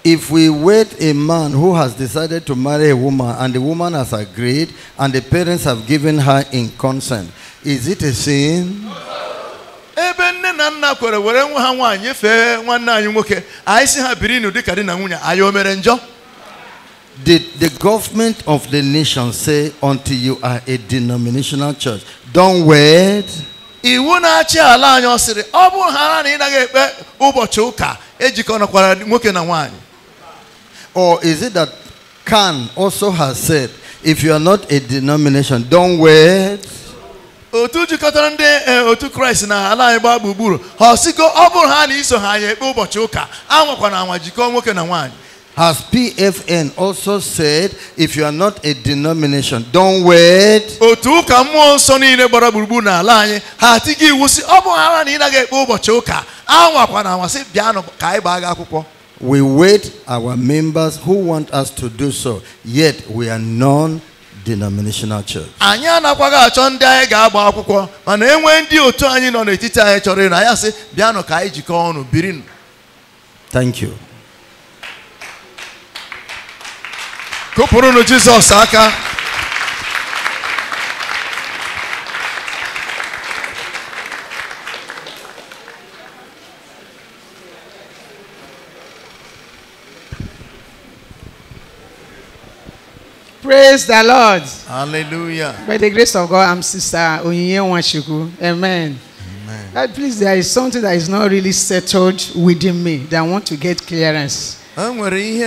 If we wed a man who has decided to marry a woman and the woman has agreed and the parents have given her in consent, is it a sin? Ebe nne na nna kwere were nwa ha nwaanyị nyefee nwanne anyị nwoke anyị si ha biri n'ụdị ka di na nwunye anyị o mere njọ The, the government of the nation say until you are a denominational church don't wed iwu na-achị ala anyị ọ sịrị ọ bụrụ ha na ị naghị ekpe ụbọchị ụka ejikọnakwara nwoke na nwaanyị or is it that Khan also has said if you are not a denomination don't wed otu jikọtara ndị e, otu kraịst na ala anyị gbaa gburugburu ha ọsigo ọ bụrụ ha na iso ha ya ekpe ụbọchị ụka anwakwana anwa jikọọ nwoke na nwaanyị As PFN also said, if you are not a denomination, don't wait. Otu ụka mmụọ nsọ niile gbara gburugburu n'ala anyị ha atigo iwu si ọ ha na ị naghị ekpe ụbọchị ụka anwakwa na si bịanụ ka anyị gbaa gị akwụkwọ. We wait our members who want us to do so, yet we are none denominational church. anyị anakwaghị achọ ndị anyị ga-agba akwụkwọ mana e nwee ndị otu anyị nọ n'etiti anyị chọrọ na ya sị bịanụ ka anyị jikọọ ọnụ nụ. thank you kụpụrụnụ Jizọs aka Praise the Lord. Hallelujah. By the grace of God, I'm Sister Onyinye Amen. Amen. please, there is something that is not really settled within me that I want to get clearance. And what is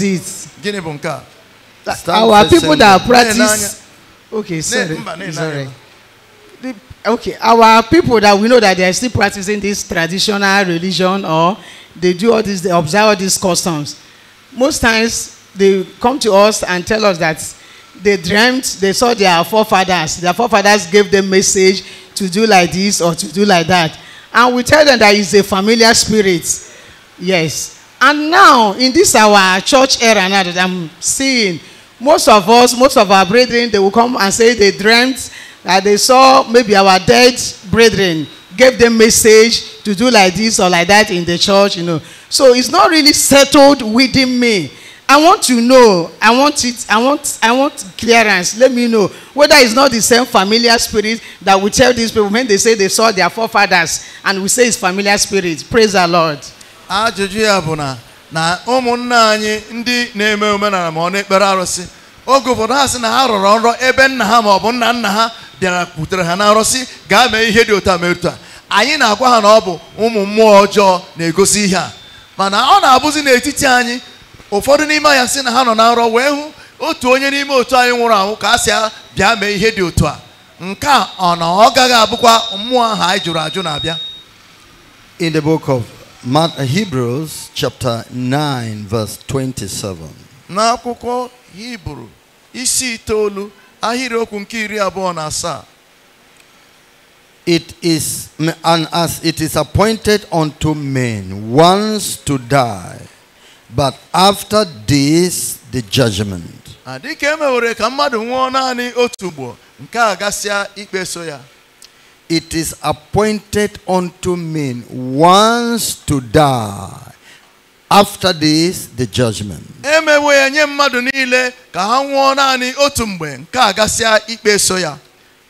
it? Our people that practice. Okay, sorry. The okay our people that we know that they are still practicing this traditional religion or they do all this they observe all these customs most times they come to us and tell us that they dreamt they saw their forefathers their forefathers gave them message to do like this or to do like that and we tell them that it's a familiar spirit yes and now in this our church era now that i'm seeing most of us most of our brethren they will come and say they dreamt that they saw maybe our dead brethren gave them message to do like this or like that in the church, you know. So it's not really settled within me. I want to know. I want it. I want. I want clearance. Let me know whether it's not the same familiar spirit that we tell these people when they say they saw their forefathers, and we say it's familiar spirit. Praise the Lord. Ajụjụ ya na na anyị ndị na-eme na oge ụfọdụ ha sị na ha rọrọ nrọ ebe nna ha maọbụ nna nna ha bịara kwutere ha na nrọsị gaa mee ihe dị otu a mere otu a anyị na-agwa ha na ọ bụ ụmụ mmụọ ọjọọ na-egosi ihe a mana ọ na-abụzi n'etiti anyị ụfọdụ n'ime anyị sị na ha nọ na nrọ wee hụ otu onye n'ime otu anyị nwụrụ anwụ ka a sị bịa mee ihe dị otu a nke a ọ na ọ gaghị abụkwa mmụọ ahụ anyị jụrụ ajụ na-abịa in the book of Hebrews chapter 9 verse 27 n'akwụkwọ Hebrew, isi itoolu ahịrịokwu nke iri abụọ na asaa it is and as it is appointed unto men once to die but after this the judgment ka mmadụ nwụọ naanị otu ugbo nke a gasịa ya it is appointed unto men once to die After this, the judgment. e mewe nye mmadụ niile ka ha nwụọ naanị otu mgbe nke a gasịa ikpe so ya.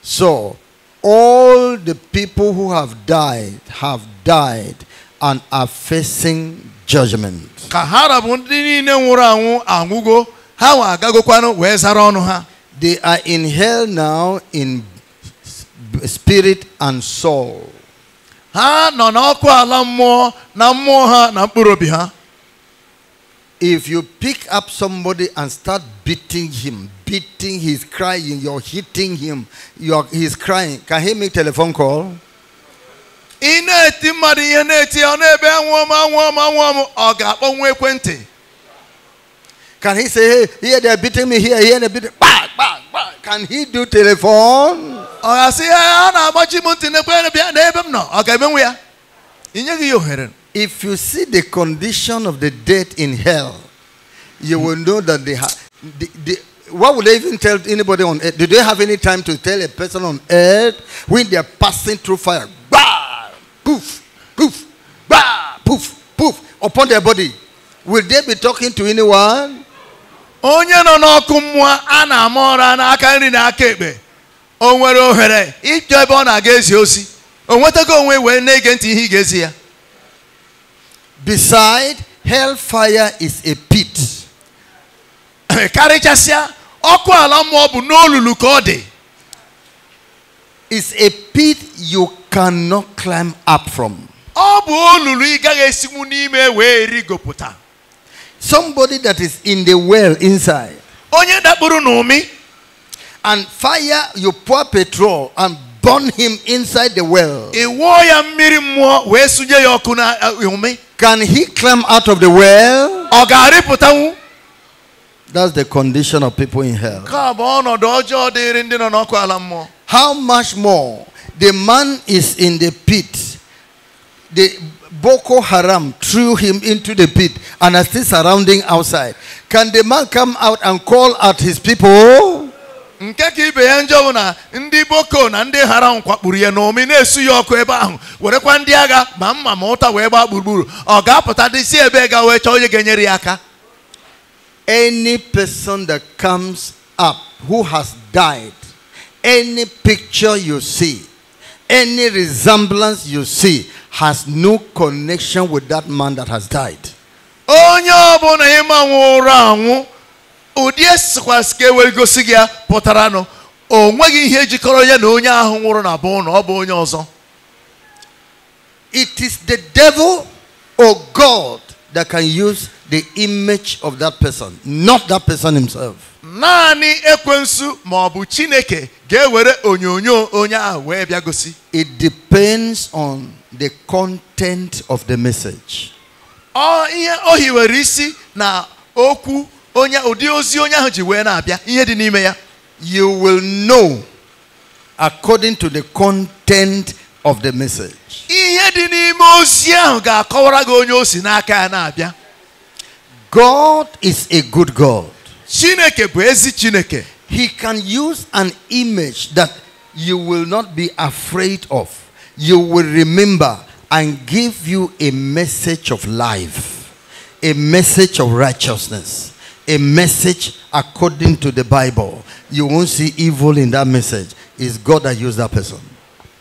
So, all the people who have died have died and are facing judgment. Ka ha rabu ndị niile nwụrụ anwụ anwụgo, ha nwa agagokwanụ wee zara ọnụ ha. They are in hell now in spirit and soul. Ha nọ n'ọkụ ala mmụọ na mmụọ ha na mkpụrụ obi ha. If you pick up somebody and start beating him, beating, he's crying, you're hitting him, you're, he's crying. Can he make telephone call? Can he say, hey, here they're beating me, here, here they're beating me. Bah, bah, Can he do telephone? Can he ga-asị ya, if you see the condition of the dead in hell, you will know that they have. what would they even tell anybody on earth? Do they have any time to tell a person on earth when they are passing through fire? Bah! Poof! Poof! Bah! Poof! Poof! Upon their body. Will they be talking to anyone? Onye nọ kumwa ana a na-ama na aka ekpe o If ohere are ebe against na na-aga ezi ozi o nwetago onwe na-ege ntị ihe ya Beside hellfire is a pit. Karịchasịa ọkụ ala mmụọ n'olulu It's a pit you cannot climb up from. Somebody that is in the well inside. Onye no mi. And fire you pour petrol and burn him inside the well. ya can he climb out of the well? That's the condition of people in hell. How much more the man is in the pit. The Boko Haram threw him into the pit and are still surrounding outside. Can the man come out and call at his people? nke ka ibe ya njọ bụ na ndị boko na ndị ahụ kwakpuru ya na omi na-esu ya ọkụ ebe ahụ werekwa ndị agha ma mma ma ụta wee gbaa gburugburu ọ ga-apụta dị si ebe ga wee chọọ onye ga-enyere ya aka any person that comes up who has died any picture you see any resemblance you see has no connection with that man that has died onye ọbụla ịmanwụ ụra anwụ ụdị esikwasị ga e gosi gị ya pụtara nụ o nweghị ihe jikọrọ ya na onye ahụ nwụrụ na bụ na ọ bụ onye ọzọ it is the devil or god that can use the image of that person not that person himself naanị ekwensu ma ọ bụ chineke ga-ewere onyonyo onye ahụ wee bịa gosi it depends on the content of the message ọ ihe o hiwere isi na okwu onye ụdị ozi onye ahụ ji wee na-abịa ihe dị n'ime ya you will know according to the content of the message ihe dị n'ime ozi ahụ ga-akọwara gị onye o si n'aka ya na-abịa God is a good God Chineke bụ ezi Chineke He can use an image that you will not be afraid of you will remember and give you a message of life a message of righteousness a message according to the Bible, you won't see evil in that message. It's God that used that person.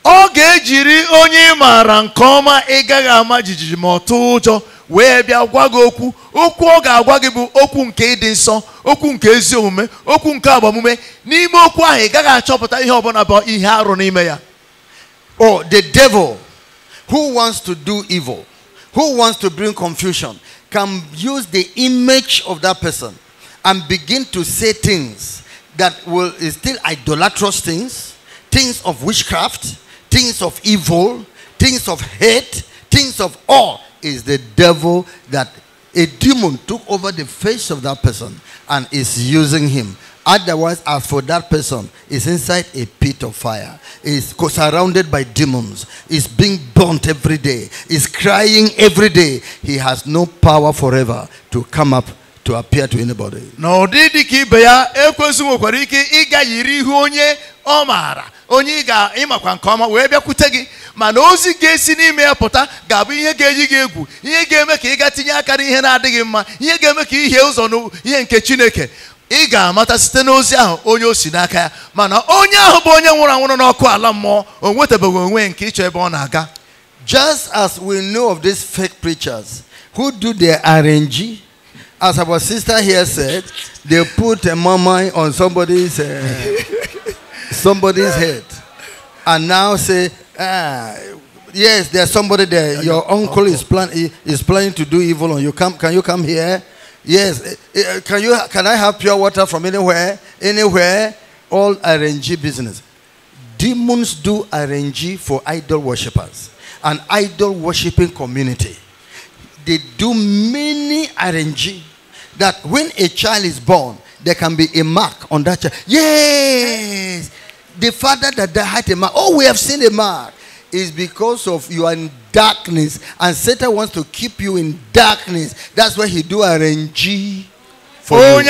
Ọ ga-ejiri onye maara nke ọma ịgaghị ama jijiji ma ọ ụjọ wee bịa gwa gị okwu okwu ọ ga-agwa gị bụ okwu nke ịdị nsọ okwu nke ezi omume okwu nke agbamume n'ime okwu ahụ ị achọpụta ihe ọbụla bụ ihe arụ n'ime ya Oh, the devil who wants to do evil, who wants to bring confusion, can use the image of that person and begin to say things that will still idolatrous things, things of witchcraft, things of evil, things of hate, things of awe is the devil that a demon took over the face of that person and is using him Otherwise, as for that person, is inside a pit of fire, is surrounded by demons, is being burnt every day, is crying every day. He has no power forever to come up to appear to anybody. No, onye ị ga ịmakwa nke ọma wee bịakwute gị mana ozi ga-esi n'ime ya pụta ga-abụ ihe ga-eji gị egwu ihe ga-eme ka ị ga tinye aka n'ihe na-adịghị mma ihe ga-eme nke chineke ị ga-amata site n'ozi ahụ onye o si n'aka ya mana onye ahụ bụ onye nwụrụ anwụrụ n'ọkụ ala mmụọ o nwetabeghị onwe nke ịchọ ebe ọ na-aga just as we know of these fake preachers who do their arrange as our sister here said they put a mama on somebody's uh, somebody's head and now say ah yes there's somebody there your uncle is, plan is planning to do evil on you come can you come here Yes. Eh, eh, eh, can you can I have pure water from anywhere? Anywhere? All RNG business. Demons do RNG for idol worshippers. An idol worshipping community. They do many RNG that when a child is born, there can be a mark on that child. Yes. The father that had a mark. Oh, we have seen a mark. Is because of you are in darkness. And Satan wants to keep you in darkness. That's why he do RNG for you.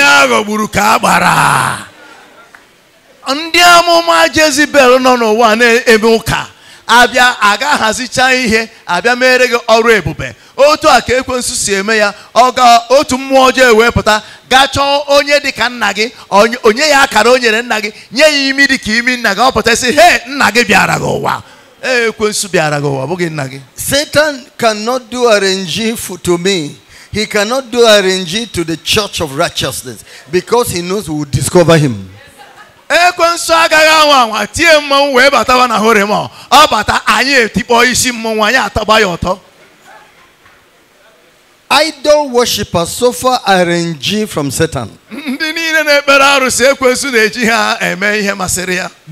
ndị amụma jezibel nọ n'ụwa na-eme ụka abịa aga hazicha ihe abịa mere gị ọrụ ebube otu a ka ekwensu si eme ya ọ otu mmụọ ọjọọ e wee pụta gaa onye dịka nna gị onye ya akara o nyere nna gị nye ya imi dịka imi nna gị ọ pụta sị he nna gị bịara gị ụwa ekwensu eh, bịara gị ụwa bụghị nna gị satan cannot do arrange to me he cannot do arrange to the church of righteousness because he knows we will discover him ekwensu eh, agaghị anwa anwa tie mmọnwụ wee batawa na hore ọ bata anyị etikpọ isi mmọnwụ anyị ataba ya ọtọ idol worshippers suffer a are from Satan.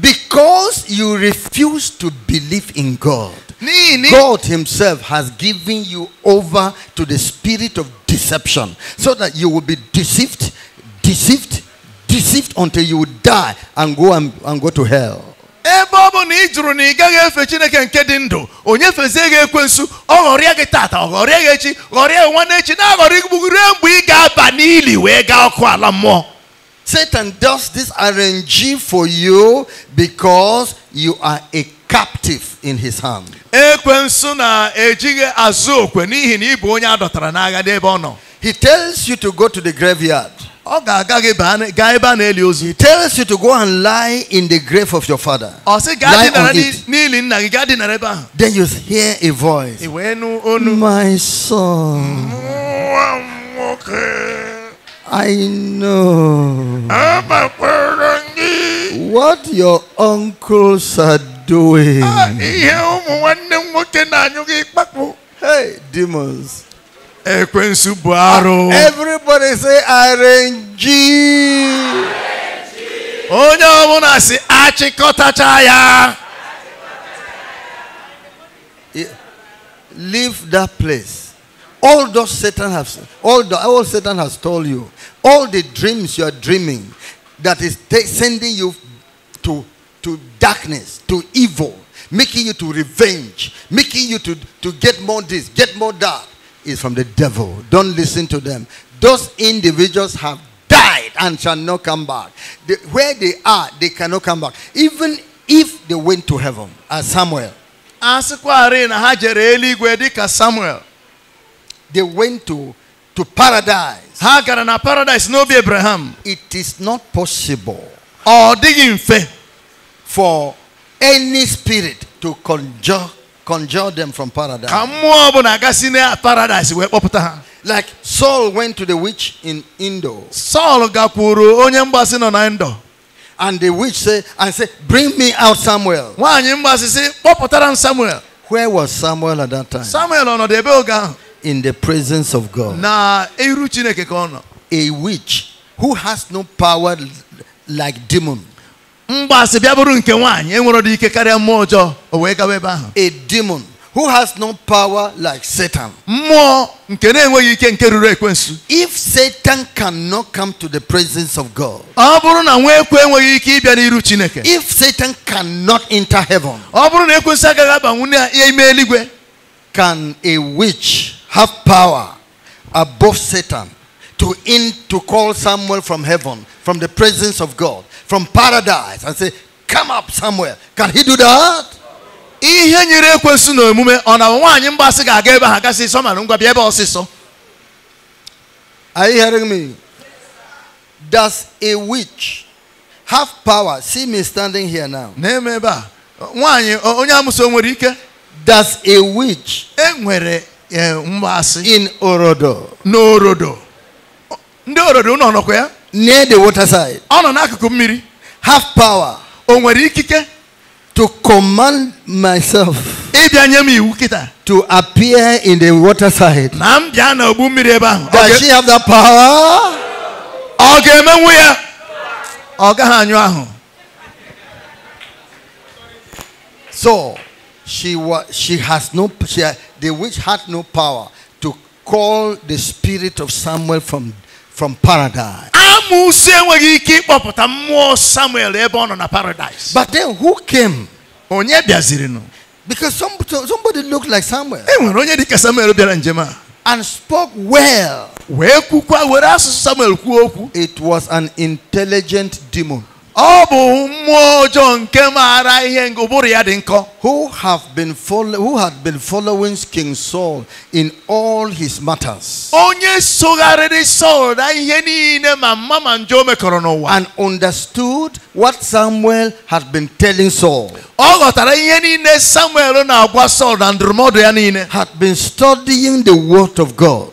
Because you refuse to believe in God, God Himself has given you over to the spirit of deception so that you will be deceived, deceived, deceived until you die and go and, and go to hell. ebe ọ bụ na ị jụrụ na ị gaghị efe chineke nke dị ndụ onye fezie gị ekwensu ọ ghọrịa gị tata ọ ghọrịa gị echi ghọrịa gị nwanne echi na-aghọrị gị mgbe ị ga-aba n'ili wee gaa ọkụ ala mmụọ Satan does this arrange for you because you are a captive in his hand. Ekwensu na-ejighị azụ okwe n'ihi na ị bụ onye a dọtara n'agha n'ebe ọ nọ. He tells you to go to the graveyard. He tells you to go and lie in the grave of your father. Oh, lie on it. Then you hear a voice. My son. I know what your uncles are doing. Ah, hey, demons. Ekwensu bụ arụ. Everybody say RNG. Onye ọbụla si achịkọtacha Leave that place. All those Satan has, all, the, all Satan has told you, all the dreams you are dreaming that is sending you to, to darkness, to evil, making you to revenge, making you to, to get more this, get more that is from the devil. Don't listen to them. Those individuals have died and shall not come back. where they are, they cannot come back. Even if they went to heaven, as Samuel. They went to, to paradise. Hagar and paradise no be Abraham. It is not possible. Or for any spirit to conjure conjured them from paradise. Ka mmụọ ọbụla agasị paradise Like Saul went to the witch in Indo. Saul gakuru onye mgbasị nọ na Indo. And the witch said, and said, bring me out Samuel. Nwaanyị mgbasị sị, kpọpụtara m Samuel. Where was Samuel at that time? Samuel ọnọdụ ebe In the presence of God. Na iru Chineke ka A witch who has no power like demon mgbasị bịa bụrụ nke nwaanyị enwere dị ike karịa mmụọ ọjọọ o wee gawa ebe ahụ a demon who has no power like Satan. If Satan cannot come to the presence of God, if Satan cannot enter heaven, can a witch have power above Satan to in to call someone from heaven, from the presence of God? from paradise and say, Come up somewhere. Can he do that? ihe nyere ekwensu na omume ọ na nwaanyị mgbasị ga-aga ebe ha gasị sọ mara ngwa bịa ebe ọsịsọ Are you hearing me? Does a witch have power? See me standing here now. Na-eme ebe a nwaanyị onye amụso nwere ike Does a witch e nwere eh, mgbasị in orodo n'orodo ndị orodo nọ ọnọkwa ya near the waterside. Ono ọ n'akụkụ mmiri. have power. o kike, to command myself. to appear in the waterside. side. does she have that power. Okay, ga ga-emenwu so she was she has no she, the witch had no power to call the spirit of Samuel from. from paradise. Amụsị enweghị ike ịkpọpụta mmụọ Samuel ebe ọ nọ na paradise. But then who came? Onye bịazirinụ? Because somebody, somebody looked like Samuel. E nwere onye dịka Samuel bịara njem a. And spoke well. Wee kwukwa were asụsụ Samuel kwuo okwu. It was an intelligent demon. Who have been follow, who had been following King Saul in all his matters. And understood what Samuel had been telling Saul. Had been studying the word of God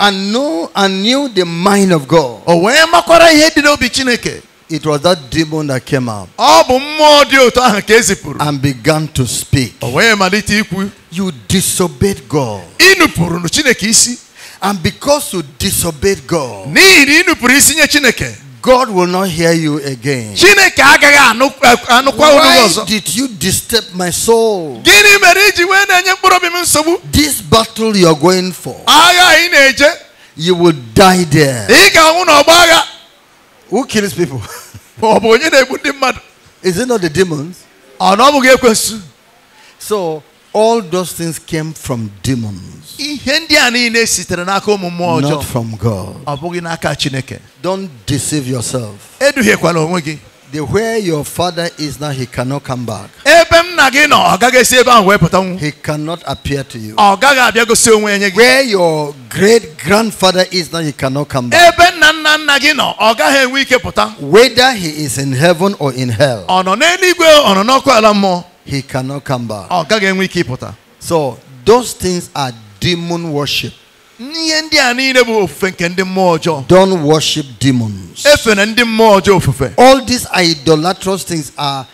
and know and knew the mind of God. Oh, it was that demon that came out. And began to speak. You disobeyed God. And because you disobeyed God. God will not hear you again. Eh, Why did you disturb my soul? This battle you are going for, you will die there. Who kills people? Is it not the demons? So, all those things came from demons. Not from God. Don't deceive yourself. The where your father is now, he cannot come back. He cannot appear to you. Where your great grandfather is now, he cannot come back. Whether he is in heaven or in hell he cannot come back. So those things are demon worship. ọjọọ. Don't worship demons. All these idolatrous things are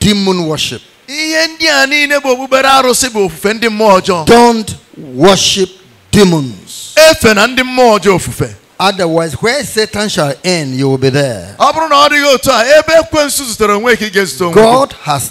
demon worship. ọjọọ. Don't worship demons. Otherwise, where Satan shall end, you will be there. God has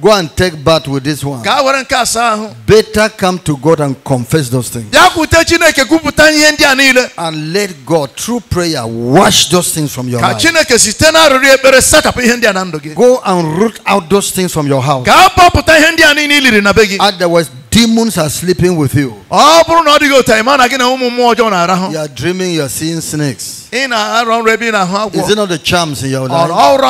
Go and take bath with this one. Better come to God and confess those things. And let God, through prayer, wash those things from your life. Go and root out those things from your house. Otherwise, demons are sleeping with you. You are dreaming you are seeing snakes. Is it not the charms in your life?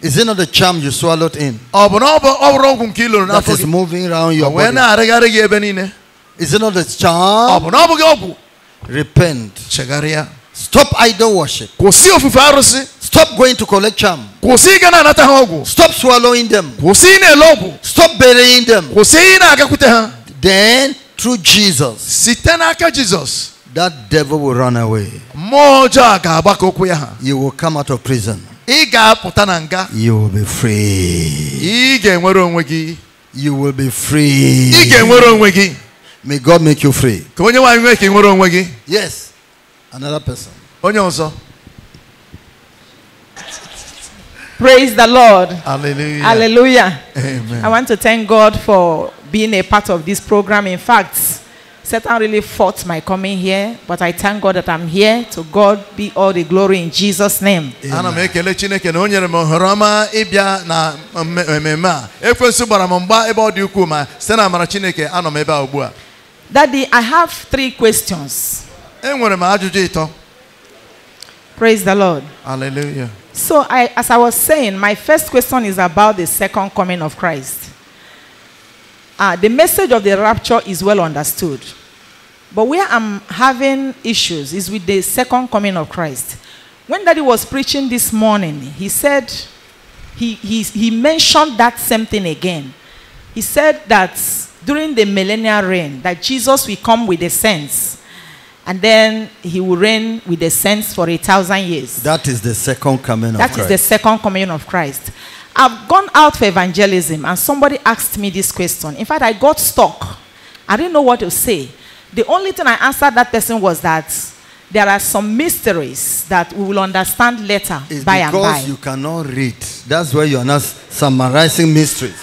Is it not the charm you swallowed in? Oh, that is moving around your body. Is it not the charm? Oh, Repent. Stop idol worship. Stop going to collect charm. Stop swallowing them. Stop burying them. Then, through Jesus, that devil will run away. You will come out of prison. You will be free. You will be free. May God make you free. Ka onye Yes. Another person. Praise the Lord. Hallelujah. Hallelujah. Amen. I want to thank God for being a part of this program. In fact, Satan really fought my coming here, but I thank God that I'm here. To God be all the glory in Jesus' name. Daddy, I have three questions. Praise the Lord. Hallelujah. So, I, as I was saying, my first question is about the second coming of Christ. Uh, the message of the rapture is well understood. But where I'm having issues is with the second coming of Christ. When Daddy was preaching this morning, he said, he, he, he mentioned that same thing again. He said that during the millennial reign, that Jesus will come with the saints. And then he will reign with the saints for a thousand years. That is the second coming that of Christ. That is the second coming of Christ. I've gone out for evangelism and somebody asked me this question. In fact, I got stuck. I didn't know what to say. The only thing I answered that person was that there are some mysteries that we will understand later it's by and by. Because you cannot read. That's why you are not summarizing mysteries.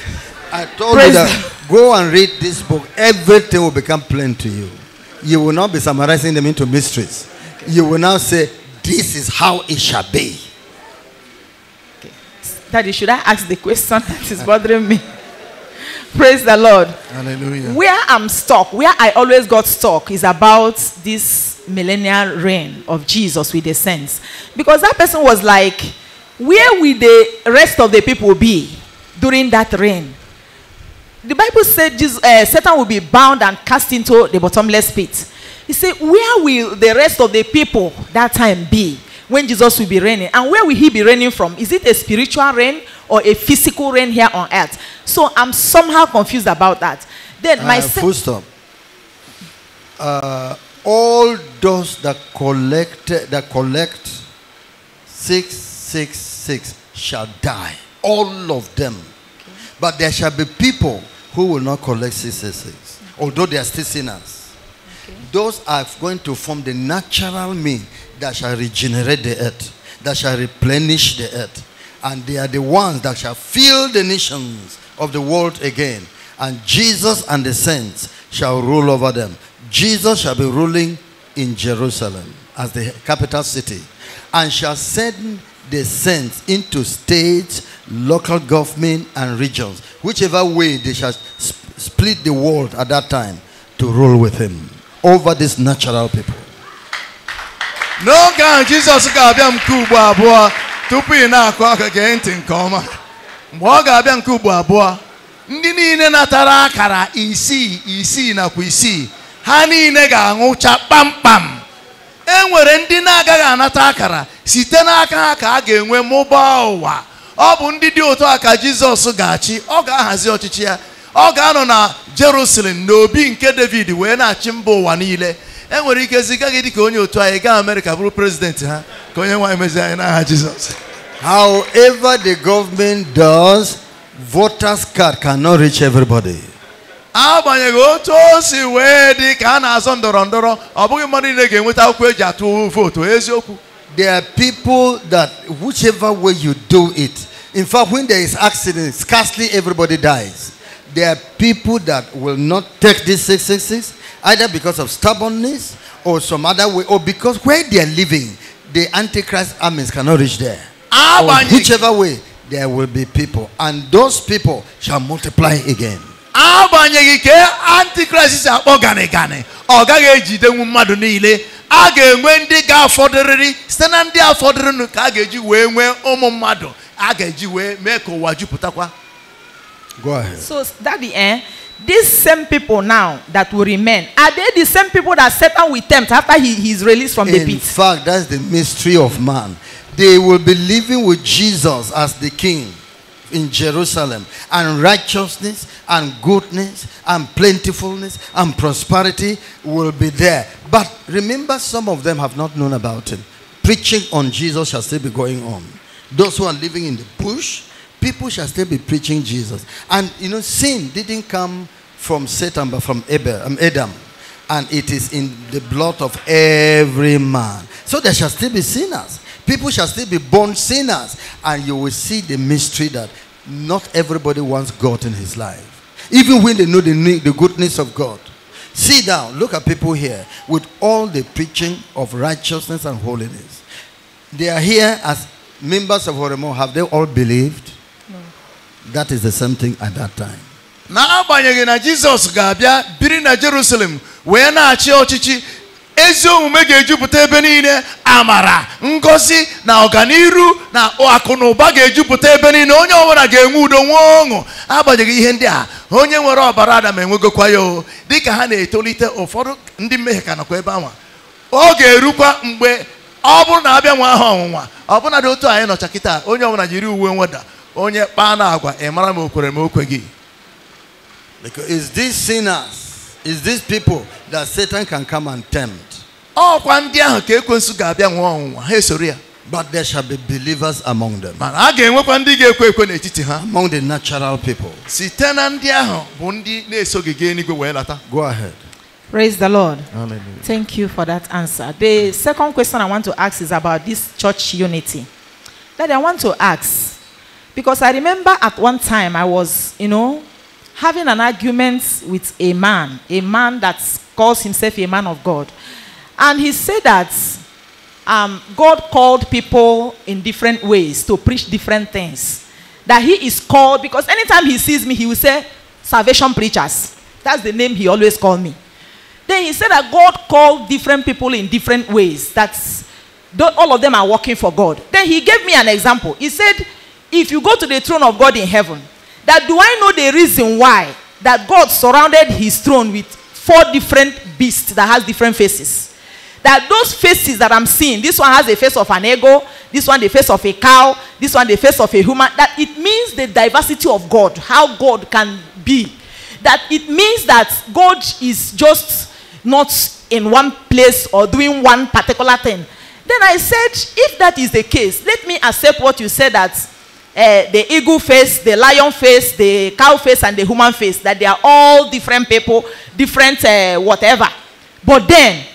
I told Praise you that go and read this book. Everything will become plain to you. You will not be summarizing them into mysteries. You will now say, This is how it shall be. Okay. Daddy, should I ask the question that is bothering me? Praise the Lord. Hallelujah. Where I'm stuck, where I always got stuck, is about this millennial reign of Jesus with the saints. Because that person was like, where will the rest of the people be during that reign? The Bible said Jesus, uh, Satan will be bound and cast into the bottomless pit. He said, where will the rest of the people that time be? when Jesus will be reigning. And where will he be reigning from? Is it a spiritual reign or a physical reign here on earth? So I'm somehow confused about that. Then my uh, full stop. Uh, all those that collect that collect six six six shall die. All of them. Okay. But there shall be people who will not collect six six six, although they are still sinners. Okay. Those are going to form the natural mean that shall regenerate the earth, that shall replenish the earth. And they are the ones that shall fill the nations of the world again. And Jesus and the saints shall rule over them. Jesus shall be ruling in Jerusalem as the capital city and shall send the saints into states, local government, and regions, whichever way they shall sp split the world at that time to rule with him over these natural people. n'oge ahụ jizọs ga-abịa nke ugbo abụọ tupu ị na-akụ aka gee ntị nke ọma mgbe ọ ga-abịa nke ugbo abụọ ndị niile natara akara isii isii nakwa isii ha niile ga anwụcha kpamkpam e nwere ndị na-agaghị anata akara site n'aka ha ka a ga-enwe mụbaa ụwa ọ bụ ndị dị otu a ka jizọs ga-achị ọ ga-ahazi ọchịchị ya ọ ga-anọ na jerusalem na obi nke david wee na-achị mba ụwa niile enwere ike ziga gị dịka onye otu anyị gaa Amerịka bụrụ ha ka onye nwaanyị anyị n'aha Jizọs however the government does voters card cannot reach everybody agbanyeghị otu o si wee dị ka a na-azọ ndọrọ ndọrọ ọ bụghị mmadụ niile ga-enweta akwụkwọ eji atụ vootu eziokwu there are people that whichever way you do it in fact when there is accident scarcely everybody dies there are people that will not take this 666 Either because of stubbornness or some other way, or because where they are living, the Antichrist armies cannot reach there. whichever way, there will be people. And those people shall multiply again. agbanyeghị ka antikrist si akpọ gani gani ọ gaghị ejidenwu mmadụ niile a ga-enwe ndị ga-afọdụrịrị site na ndị afọdụrịnụ ka a ga-eji wee nwee ụmụ mmadụ a ga go ahead so that the eh these same people now that will remain, are they the same people that Satan will tempt after he, is released from In the pit? In fact, that's the mystery of man. They will be living with Jesus as the king in Jerusalem, and righteousness and goodness and plentifulness and prosperity will be there. But remember, some of them have not known about him. Preaching on Jesus shall still be going on. Those who are living in the bush, people shall still be preaching Jesus. And you know, sin didn't come from Satan, but from um, Adam. And it is in the blood of every man. So there shall still be sinners. People shall still be born sinners. And you will see the mystery that not everybody wants God in his life. Even when they know the, the goodness of God. See down, look at people here with all the preaching of righteousness and holiness. They are here as members of Horemo. Have they all believed? That is the same thing at that time. n'agbanyeghị na Jizọs ga-abịa biri na Jerusalem wee na-achị ọchịchị ezi omume ga-ejupụta ebe niile amara ngosi na ọganiru na akụ na ụba ga-ejupụta ebe niile onye ọbụla ga-enwe udo nwee ọṅụ agbanyeghị ihe ndị a onye nwere ọbara Adam enwegokwa ya o dịka ha na-etolite ụfọdụ ndị mmehie ka nakwa ebe anwa ọ ga-erukwa mgbe ọ bụrụ na abịa nwa ahụ ọnwụnwa ọbụnadị otu anyị nọcha kịta onye ọbụla jiri uwe nweda onye kpaa na agwa ị mara m o gị ma o because it's these sinners it's these people that Satan can come and tempt ọkwa ndị ahụ ka ekwensu ga-abịa nwụọ ọnwụnwa ha esoro ya But there shall be believers among them. Mana a ga-enwekwa ndị ga-ekwe ekwe n'etiti ha. Among the natural people. Site na ndị ahụ bụ ndị na eso gị eluigwe wee lata. Go ahead. Praise the Lord. Hallelujah. Thank you for that answer. The second question I want to ask is about this church unity. That I want to ask Because I remember at one time I was, you know, having an argument with a man, a man that calls himself a man of God. And he said that um, God called people in different ways to preach different things. That he is called, because anytime he sees me, he will say, Salvation preachers. That's the name he always called me. Then he said that God called different people in different ways. That's all of them are working for God. Then he gave me an example. He said, if you go to the throne of God in heaven, that do I know the reason why that God surrounded his throne with four different beasts that has different faces? That those faces that I'm seeing, this one has the face of an eagle, this one the face of a cow, this one the face of a human, that it means the diversity of God, how God can be. That it means that God is just not in one place or doing one particular thing. Then I said, if that is the case, let me accept what you said that Eh, the eagle face, the lion face, the cow face, and the human face, that they are all different people, different uh, whatever. But then,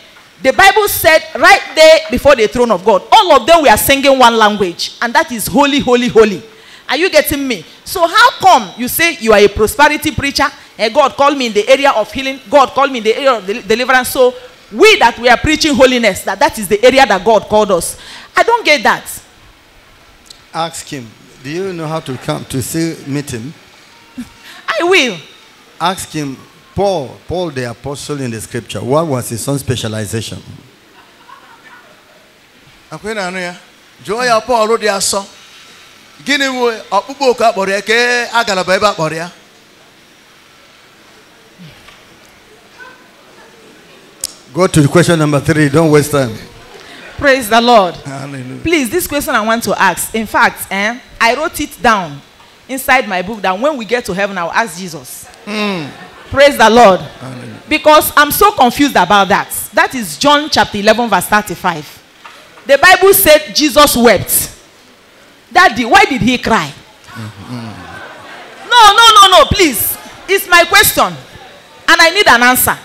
the Bible said right there before the throne of God, all of them were singing one language, and that is holy, holy, holy. Are you getting me? So, how come you say you are a prosperity preacher? And eh, God called me in the area of healing, God called me in the area of deliverance. So, we that we are preaching holiness, that that is the area that God called us. I don't get that. Ask Him. do you know how to come to see meet him? I will. Ask him, Paul, Paul the apostle in the scripture, what was his own specialization? jụọ ya Pọl dị asọ gịnị bụ ọkpụkpọ oku akpọrọ Go to question number three. Don't waste time. Praise the Lord. Hallelujah. Please, this question I want to ask. In fact, eh, I wrote it down inside my book that when we get to heaven, I'll ask Jesus. Mm. Praise the Lord. Amen. Because I'm so confused about that. That is John chapter 11, verse 35. The Bible said Jesus wept. Daddy, why did he cry? Mm-hmm. No, no, no, no, please. It's my question. And I need an answer.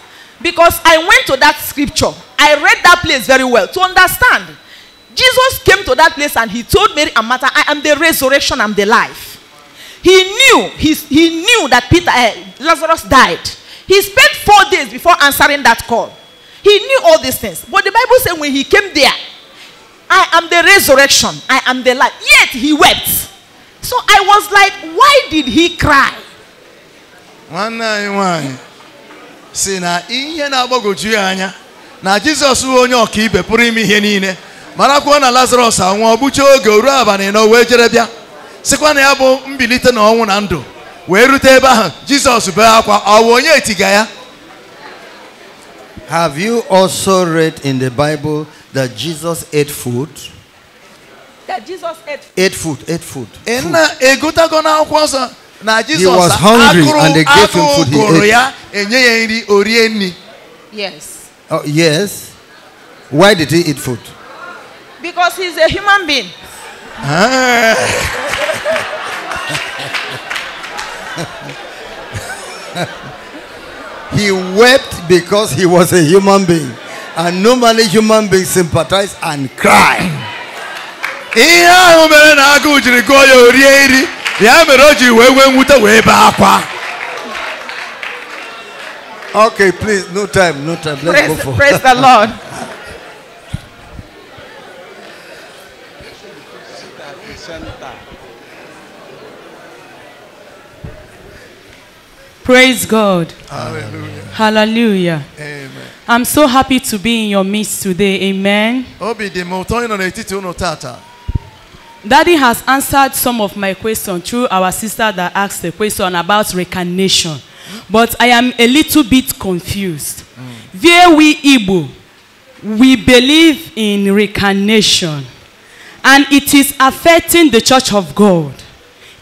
Because I went to that scripture, I read that place very well to understand Jesus came to that place and he told Mary and Martha, I am the resurrection, I'm the life. He knew, he, he knew that Peter, uh, Lazarus died. He spent four days before answering that call. He knew all these things. But the Bible said when he came there, I am the resurrection, I am the life. Yet he wept. So I was like, why did he cry? marakwuo na lazarus anwụọ gbuchie oge ruo abalị na wee jere bịa sịkwa na ya bụ mbilite na ọnwụ na ndụ wee rute ebe ahụ jizọs bee akwa ọwụ onye etiga ya Have you also read in the Bible that Jesus ate food? That Jesus ate food. Ate food, ate food. food. He was hungry and they gave him food. He ate. Yes. Oh, yes. Why did he eat food? Because he's a human being. he wept because he was a human being. And normally human beings sympathize and cry. okay please no time no time let's praise, go for praise the lord Praise God. Hallelujah. Hallelujah. Amen. I'm so happy to be in your midst today. Amen. Daddy has answered some of my questions through our sister that asked the question about recognition. But I am a little bit confused. Mm. we Igbo, we believe in reincarnation, And it is affecting the church of God.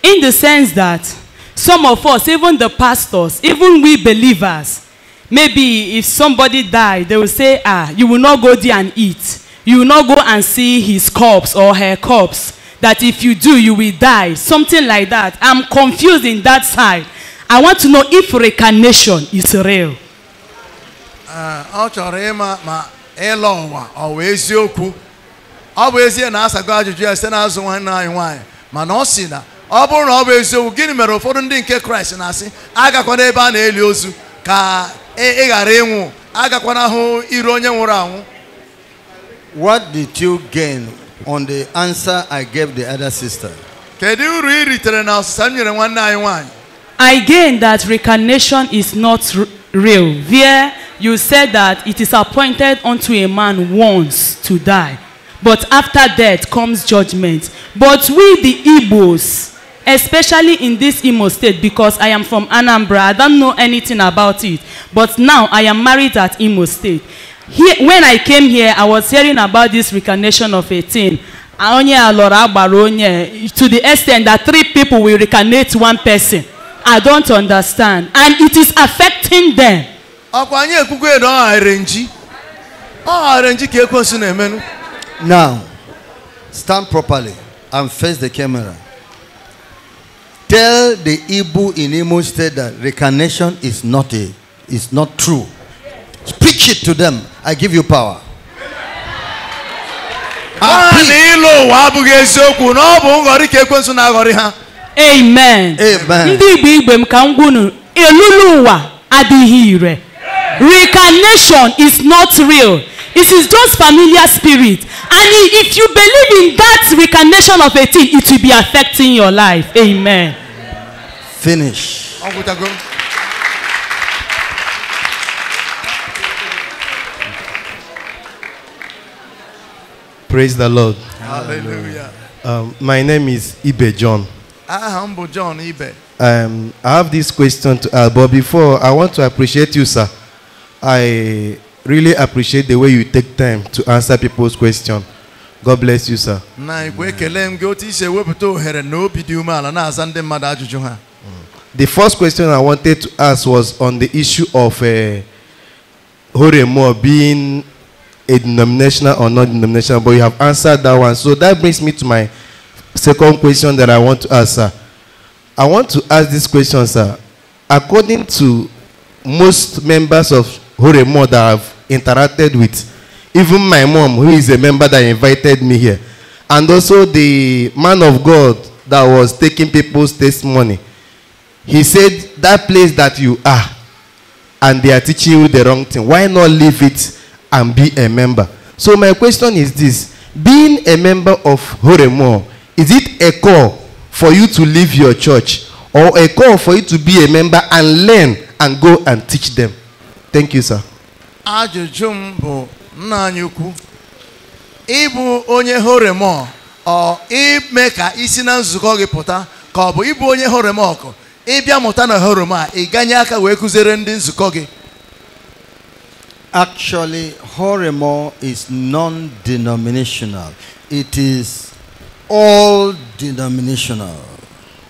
In the sense that Some of us, even the pastors, even we believers, maybe if somebody died, they will say, ah, you will not go there and eat. You will not go and see his corpse or her corpse. That if you do, you will die. Something like that. I'm confused in that side. I want to know if reincarnation is real. Uh, ọ chọrọ ịma ma ịlọ ụwa ọ wụ eziokwu ọ bụ ezie na asago ajụjụ ya site n'azụ nwanne anyị nwaanyị mana ọ si na ọ bụrụ na ọ bụ eziokwu gịnị mere ụfọdụ ndị nke kraịst na-asị agakwana ebe a na-eli ozu ka ị ghara ịnwụ agakwana hụ iru onye nwụrụ anwụ what did you gain on the answer i gave the other sister kedu uru ị ritere na ọsịsa m nyere nwanne anyị nwanyị i gain that reincarnation is not real There, you said that it is appointed unto a man once to die but after death comes judgment but we the igbos especially in this Imo state because I am from Anambra. I don't know anything about it. But now I am married at Imo state. Here, when I came here, I was hearing about this recarnation of 18. Onye alọrọ agbara onye to the extent that three people will recarnate one person. I don't understand. And it is affecting them. Ọkwa anyị ekwukwe na ọ gharịrị nji. Ọ gharịrị nji ka ekwensu na-emenụ. Now, stand properly and face the camera. Tell the Ibu in Imo State that reincarnation is not a, is not true. Speak it to them. I give you power. Ah, Amen. Amen. Ndị Igbo Igbo m ka m gwunu elulu ụwa adịghị ire. Reincarnation is not real. It is just familiar spirit. And if you believe in that reincarnation of a thing, it will be affecting your life. Amen. finish. Praise the Lord. Hallelujah. Um, my name is Ibe John. I ah, humble John Ibe. Um, I have this question, to, uh, but before I want to appreciate you, sir. I really appreciate the way you take time to answer people's questions. God bless you, sir. The first question I wanted to ask was on the issue of uh, Horemo being a denominational or not denominational, but you have answered that one. So that brings me to my second question that I want to ask, sir. I want to ask this question, sir. According to most members of Horemo that I've interacted with, even my mom, who is a member that invited me here, and also the man of God that was taking people's testimony, money, He said, That place that you are, and they are teaching you the wrong thing, why not leave it and be a member? So, my question is this Being a member of Horemo, is it a call for you to leave your church or a call for you to be a member and learn and go and teach them? Thank you, sir. Ajụjụ m bụ nna anyị ukwu ịbụ onye horemọ ọ ime ka isi na nzukọ gị pụta ka ọ bụ ịbụ onye horemọkụ ịbịa mụta na oroma ị ganye aka wee kụziere ndị nzukọ gị Actually, Horemo is non-denominational. It is all denominational.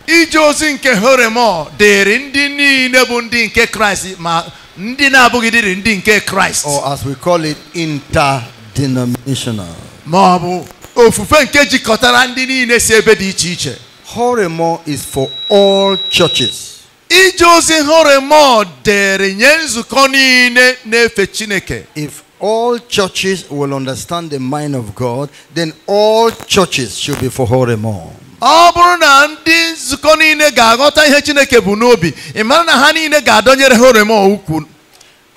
Ije ozi nke Horemo dịrị ndị niile bụ ndị nke Kraịst ma ndị na-abụghị dịrị ndị nke Kraịst. Or as we call it, interdenominational. Ma ọ bụ ofufe nke jikọtara ndị niile si ebe dị iche iche. Horemo is for all churches. If all churches will understand the mind of God, then all churches should be for Horemo. na ndị nzukọ ihe chineke na horemo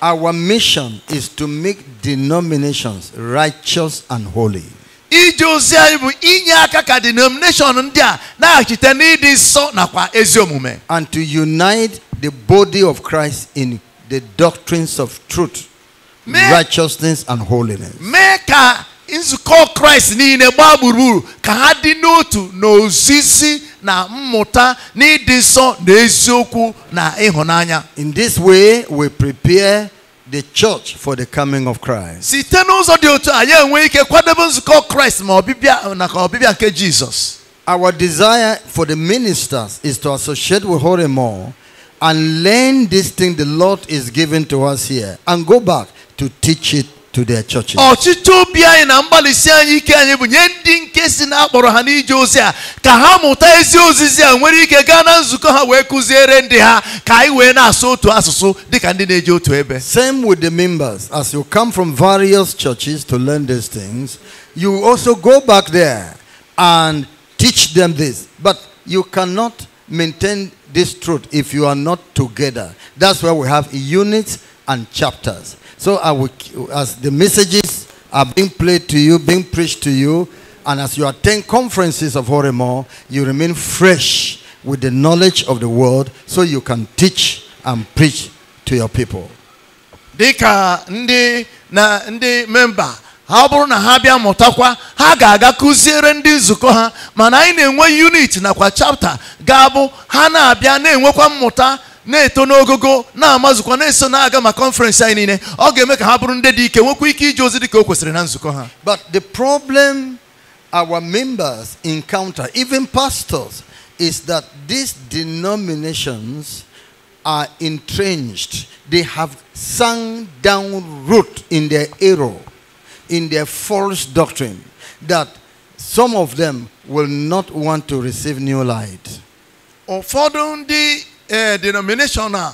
our mission is to make denominations righteous and holy iji ozi anyị bụ inye aka ka denomination ndị a na-achite n'ịdị nsọ nakwa ezi omume and to unite the body of Christ in the doctrines of truth righteousness and holiness mee ka nzukọ kraịst niile gbaa gburugburu ka ha dị n'otu n'ozizi na mmụta n'ịdị nsọ na eziokwu na ịhụnanya in this way we prepare the church for the coming of Christ. See, n'ụzọ dị otu a ya enwe ike we nzukọ Kraịst ma ọbịbịa na ka ọbịbịa Our desire for the ministers is to associate with Holy more and learn this thing the Lord is giving to us here and go back to teach it to their churches. ọchịchọ obi anyị na mgbalịsi anyị ike anyị bụ nye ndị nke si na akpọrọ ha n'ije ozi a ka ha mụta ezi ozizi a nwere ike gaa na nzukọ ha wee kụziere ndị ha ka anyị wee na-asụ otu asụsụ dịka ndị na-eje otu ebe. Same with the members as you come from various churches to learn these things you also go back there and teach them this but you cannot maintain this truth if you are not together. That's why we have units and chapters. So will, as the messages are being played to you, being preached to you, and as you attend conferences of Horemo, you remain fresh with the knowledge of the world, so you can teach and preach to your people. dịka ndị na ndị memba ha bụrụ na ha bịa mụtakwa ha ga-aga kụziere ndị nzukọ ha mana anyị na-enwe unit nakwa chapta ga-abụ ha na-abịa na-enwekwa mmụta na-eto n'ogogo na-amazụkwa na-eso na-aga ma kọnferensị anyị niile ọ ga-eme ka ha bụrụ ndị dị ike nwekwa ike ije ozi dị ka o kwesịrị na nzukọ ha but the problem our members encounter even pastors is that these denominations are entrenched they have sunk down root in their error in their false doctrine that some of them will not want to receive new light ụfọdụ ndị ee eh, denomination a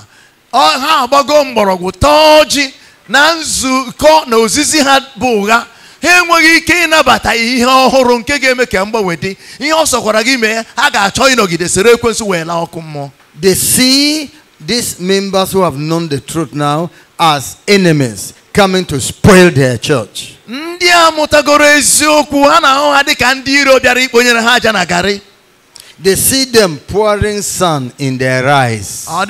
ha agbago mgbọrọgwụ tọọ ji na nzukọ na ozizi ha bụ ụgha ha enweghị ike ịnabata ihe ọhụrụ nke ga-eme ka mgbanwe dị ihe ọ sọkwara gị mee ha ga-achọ ịnọgide sere ekwensụ wee laa ọkụ mmụọ they see these members who have known the truth now as enemies coming to spoil their church. ndị a mụtagoro eziokwu ha na-ahụ ha dị ka ndị iro bịara ikponyere ha aja na garị They see them pouring sun in their eyes. Ah,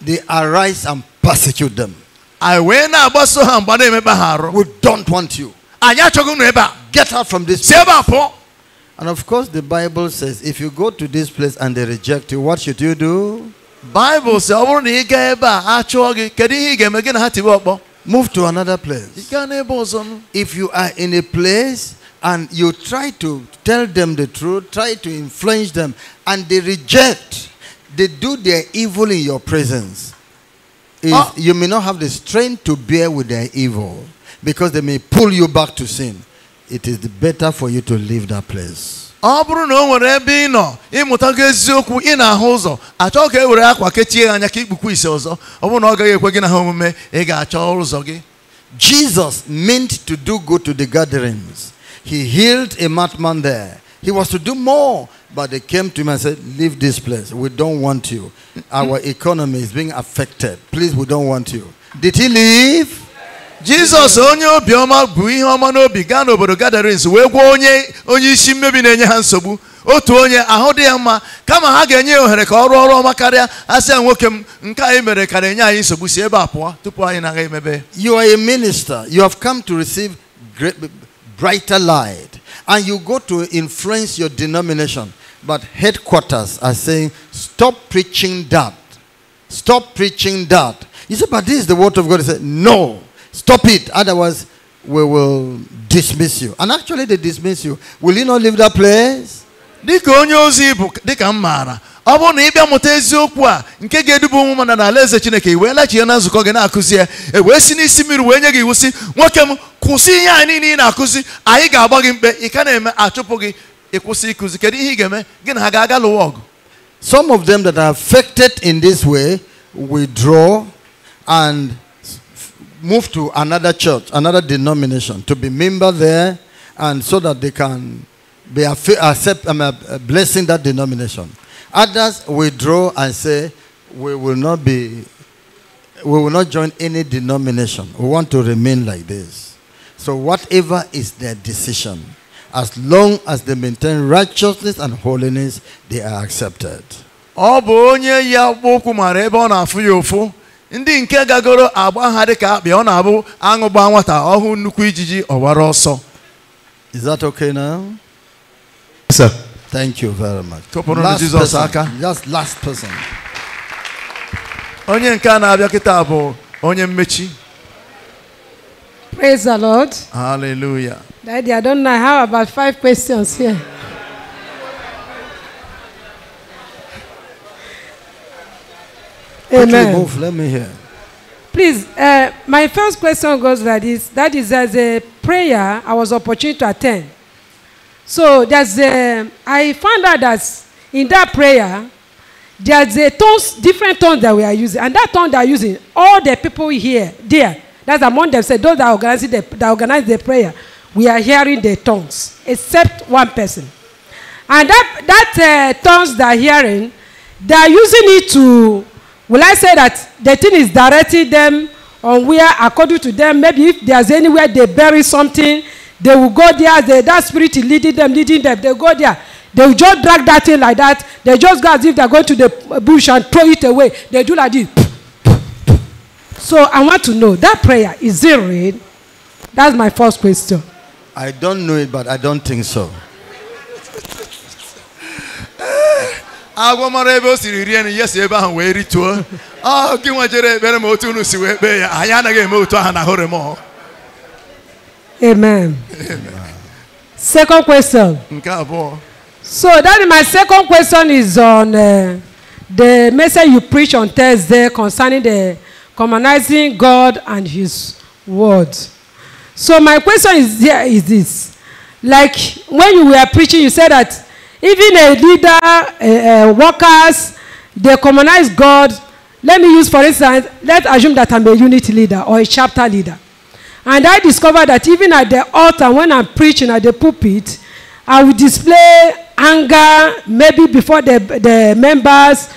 they arise and persecute them. We don't want you. Ah, Get out from this place. And of course, the Bible says if you go to this place and they reject you, what should you do? Bible says, move to another place if you are in a place and you try to tell them the truth, try to influence them, and they reject. They do their evil in your presence. Oh. You may not have the strength to bear with their evil because they may pull you back to sin. It is better for you to leave that place. ọ bụrụ na o nwere ebe ị nọ ịmụtago eziokwu ị na-ahụ ụzọ achọ ka e were akwa kechie ya anya ka ikpukwa ise ọzọ ọ bụrụ na ọ gaghị ekwe gị na ha omume ị ga-achọ ụzọ gị Jesus meant to do good to the gatherings he healed a madman there. He was to do more, but they came to him and said, Leave this place. We don't want you. Our economy is being affected. Please, we don't want you. Did he leave? Jesus, onye obiọma bụ ihe ọma n'obi gaa n'obodo gadarins wee gwọ onye onye isi mmebi na-enye ha nsogbu otu onye ahụ dị ya mma kama ha ga-enye ya ohere ka ọ rụọ ọrụ ọma karịa asị ya nwoke m nke anyị mere ka na-enye anyị nsogbu si ebe a pụọ tupu anyị na-aga emebe you are a minister you have come to receive great brighter light. And you go to influence your denomination. But headquarters are saying, stop preaching that. Stop preaching that. You say, but this is the word of God. He said, no, stop it. Otherwise, we will dismiss you. And actually, they dismiss you. Will you not leave that place? ọ bụrụ na ị bịa mụta eziokwu a nke ga Chineke i wee lachie na nzukọ gị na-akụzi ya e wee si n'isi mmiri wee nye gị iwu si nwoke m kwụsị ihe niile ị na-akụzi anyị ga-agba gị mkpe ị ka na-eme achụpụ gị ịkwụsị ịkụzi kedu ihe ị ga-eme gị na ha ga-aga lụwa ọgụ some of them that are affected in this way withdraw and move to another church another denomination to be member there and so that they can be accept, um, uh, blessing that denomination Others withdraw and say, we will not be, we will not join any denomination. We want to remain like this. So whatever is their decision, as long as they maintain righteousness and holiness, they are accepted. ya ndị nke gagoro agba ha dị ka akpị ọ na-abụ aṅụ gbaa nwata ọhụụ nnukwu ijiji ọgbara ọsọ Is that okay now? Yes, sir. Thank you very much. Last na Jizọs aka. Just last person. Onye nke na-abịa kịta bụ onye mmechi. Praise the Lord. Hallelujah. Daddy, I don't know. I have about five questions here. Amen. Move, let me hear. Please, uh, my first question goes like this. That is, as a prayer, I was opportunity to attend. So there's a, I found out that in that prayer, there's a tons different tones that we are using. And that tone they are using, all the people here, there, that's among them, say those that organize the, that organize the prayer, we are hearing the tongues, except one person. And that, that uh, tongues they are hearing, they are using it to, will I say that the thing is directing them on where, according to them, maybe if there's anywhere they bury something, They will go there. They, that spirit is leading them, leading them. They go there. They will just drag that thing like that. They just go as if they are going to the bush and throw it away. They do like this. So I want to know that prayer is it real? That's my first question. I don't know it, but I don't think so. Ah, agwọ ebe o siri rie nri ya si ebe ahụ wee rituo ọ ah, gị nwa jere ebere otu unu si wee kpee ya anyị anaghị eme otu ahụ na hụrụ m ọhụ Amen. Amen. Second question. Nke abụọ. So that is my second question is on uh, the message you preach on Thursday concerning the commonizing God and His word. So my question is here is this. Like when you were preaching, you said that even a leader, uh, uh, workers, they commonize God. Let me use, for instance, let's assume that I'm a unit leader or a chapter leader. And I discovered that even at the altar, when I'm preaching at the pulpit, I will display anger, maybe before the, the members,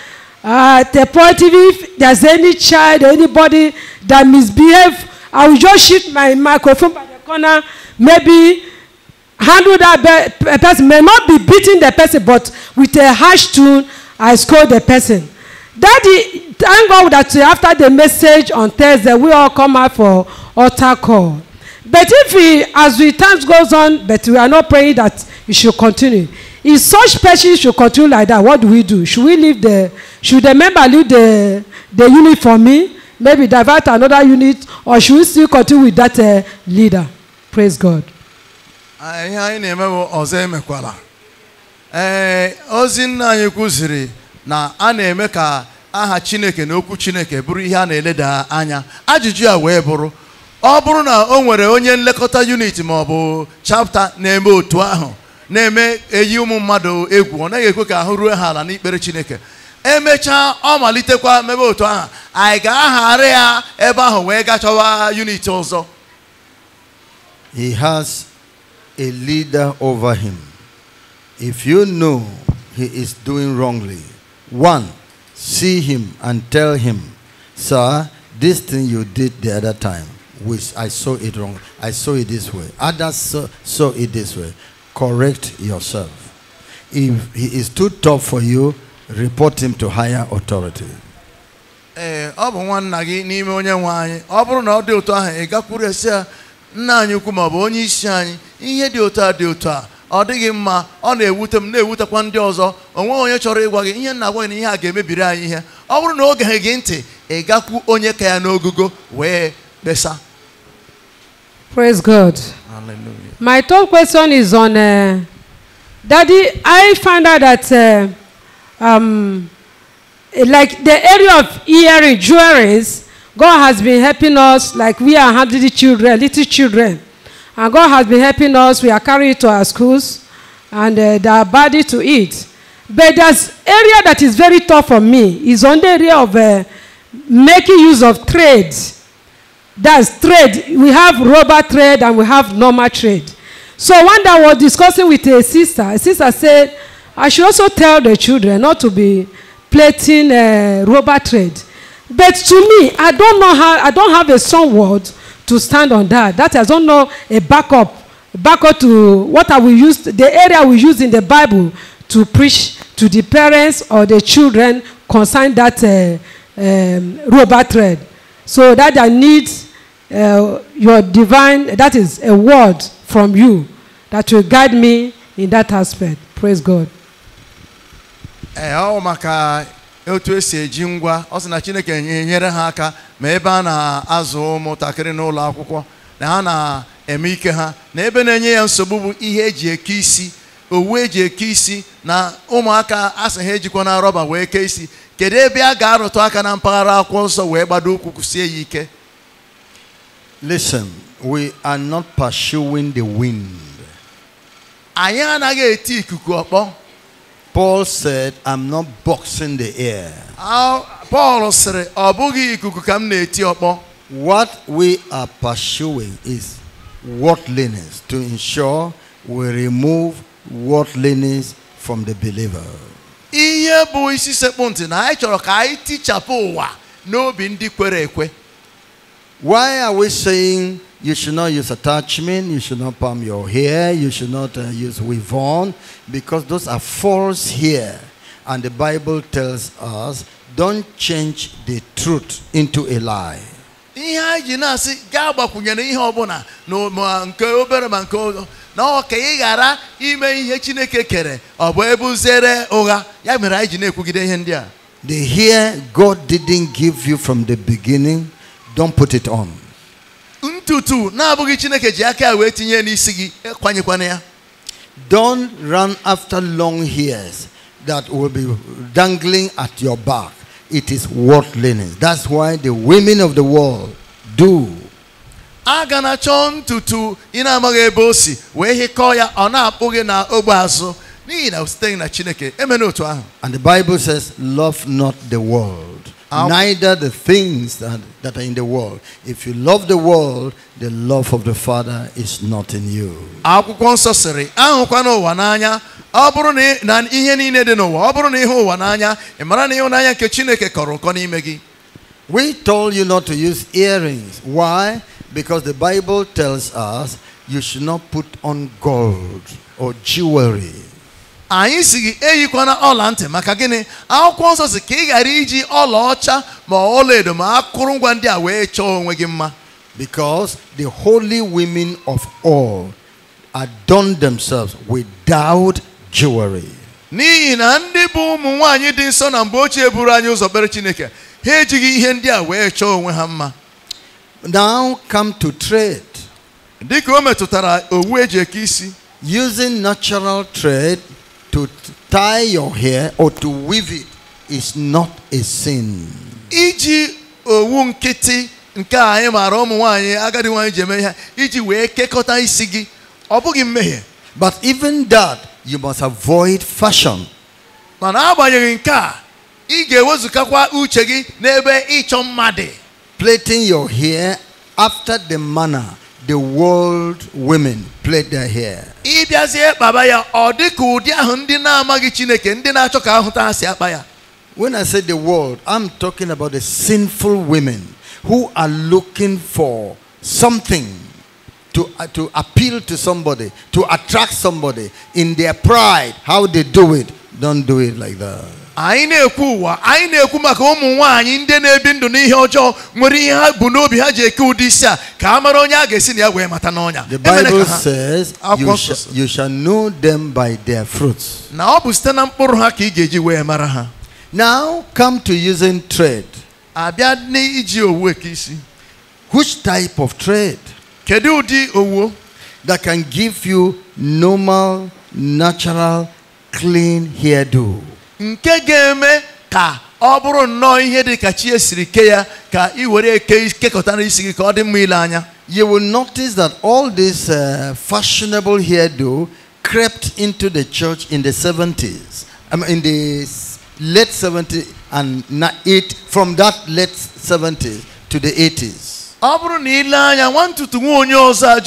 uh, the point if there's any child or anybody that misbehave, I will just shoot my microphone by the corner, maybe handle that person, may not be beating the person, but with a harsh tone, I scold the person. Daddy, thank God that after the message on Thursday, we all come out for altar call. But if we, as we time goes on, but we are not praying that it should continue. If such person should continue like that, what do we do? Should we leave the, should the member leave the, the unit for me? Maybe divert another unit, or should we still continue with that uh, leader? Praise God. Anyị anyị na-emewo ọzọ emekwala. Ee, ozi nna anyị kwụziri. na a na-eme ka aha chineke na okwu chineke bụrụ ihe a na-eleda anya ajụjụ a wee bụrụ ọ bụrụ na o nwere onye nlekọta unit ma ọ bụ chapta na-eme otu ahụ na-eme eyi ụmụ mmadụ egwu ọ naghị ekwe ka ahụ ruo ha ala n'ikpere chineke emechaa ọ malitekwa mebe otu ahụ anyị ga-aghara ya ebe ahụ wee gachawa unit ọzọ he has a leader over him if you know he is doing wrongly One, see him and tell him, Sir, this thing you did the other time, which I saw it wrong. I saw it this way. Others saw, saw it this way. Correct yourself. If he is too tough for you, report him to higher authority. Eh, ọ dịghị mma ọ na-ewute m na-ewutekwa ndị ọzọ onwe onye chọrọ ịgwa gị ihe nna agwa na ihe a ga-emebiri anyị ihe ọ bụrụ na oge geghị gị ntị ị gakwu onye ka ya n'ogugo wee kpesa Praise God. Hallelujah. My third question is on uh, Daddy. I find out that uh, um, like the area of earring jewelries, God has been helping us. Like we are handling children, little children. And God has been helping us. We are carrying it to our schools and uh, they are body to eat. But there's area that is very tough for me is on the area of uh, making use of trade. That's trade. We have rubber trade and we have normal trade. So one day I was discussing with a sister. A sister said, I should also tell the children not to be plating uh, rubber trade. But to me, I don't know how, I don't have a strong word to stand on that. That is not a backup, backup to what I will use, the area we use in the Bible to preach to the parents or the children concern that uh, um, rubber thread. So that I need uh, your divine, that is a word from you that will guide me in that aspect. Praise God. Uh, otu esi eji ngwa ọ sị na Chineke enyere ha aka ma ebe a na-azụ ụmụntakịrị n'ụlọ akwụkwọ na ha na-eme ike ha na ebe na-enye ya nsogbu bụ ihe eji eke isi owu eji eke isi na ụmụaka asị ha ejikwa na rọba wee kee isi kedu ebe a ga-arụtụ aka na mpaghara akwụkwọ nsọ wee gbado ụkwụ kwụsie ya ike we are not pursuing the wind anyị anaghị eti ikuku ọkpọ Paul said, I'm not boxing the air. Paul said, What we are pursuing is worldliness to ensure we remove worldliness from the believer. Ihe bụ isi sekpụ ntị na anyị chọrọ ka anyị tichapụ ụwa n'obi ndị kwere ekwe. Why are we saying you should not use attachment. You should not palm your hair. You should not uh, use weave on because those are false here. And the Bible tells us, don't change the truth into a lie. ihe anyị ji na-asị gaa gbakwunyere ihe ọbụla na nke obere ma nke ụzọ na ọ ka ị ghara ime ihe chineke kere ọ bụ ebuzere ụgha ya mere anyị na-ekwugide ihe ndị a the hair god didn't give you from the beginning don't put it on ntutu na-abụghị chineke ji aka ya wee tinye n'isi gị kwanyekwana ya don't run after long hairs that will be dangling at your back it is learning. that's why the women of the world do aga na chọọ ntutu ị na-amaghị ebe o si wee hịkọọ ya ọ na ogbe azụ n'ihi na site na chineke emena otu ahụ and the bible says love not the world neither the things that, that are in the world. If you love the world, the love of the Father is not in you. ọ bụrụ na ihe niile dị n'ụwa, ọ bụrụ na ụwa n'anya, ị mara na nke Chineke kọrọ ụkọ n'ime gị. We told you not to use earrings. Why? Because the Bible tells us you should not put on gold or jewelry. anyị si gị eyikwana ọla ntị maka gịnị akwụkwọ nsọ si ka ị ghara iji ọlaọcha ma edo ma akụrụngwa ndị a wee chọọ onwe gị mma because the holy women of all adorn themselves without jewelry. n'ihi na ndị bụ ụmụ nwaanyị dị nsọ na mgbe ochie buru anyị ụzọ kpere Chineke ha ejighị ihe ndị a wee chọọ onwe ha mma now come to trade dịka o metụtara owu eji eke isi using natural trade to tie your hair or to weave it is not a sin. Iji owu nkịtị nke anyị maara ụmụ nwanyị agadi nwanyị ji eme ihe iji wee kekọta isi gị ọ bụghị mmehie. But even that you must avoid fashion. Mana agbanyeghị nke a ị ga ewezukakwa uche gị n'ebe ịchọ mma Plating your hair after the manner the world women played their hair. ịbịazie kpaba ya ọ dị ka ụdị ahụ ndị na-amaghị chineke ndị na-achọ ka ahụta si akpa ya. when i say the world i'm talking about the sinful women who are looking for something to, uh, to appeal to somebody to attract somebody in their pride how they do it don't do it like that. anyị na-ekwu ụwa anyị na-ekwu maka ụmụ nwaanyị ndị na-ebi ndụ n'ihe ọjọọ nwere ihe ha bụ n'obi ha ji eke ụdị isi a ka a mara onye a ga-esi na ya wee mata n'ọnya the Bible says you shall know them by their fruits na ọ bụ site na mkpụrụ ha ka ị ga-eji wee mara ha now come to using trade abịa n'iji owu eke isi which type of trade kedu ụdị owu that can give you normal natural clean hairdo nke ga-eme ka ọ bụrụ nnọọ ihe dị ka chi esiri kee ya ka ị were eke kekọta n'isi gị ka ọ dị mma ile anya you will notice that all this uh, fashionable hairdo crept into the church in the 70s I mean, in the late 70s and eight, from that late 70s to the 80s ọ bụrụ na ile anya nwa ntutu nwa onye ọzọ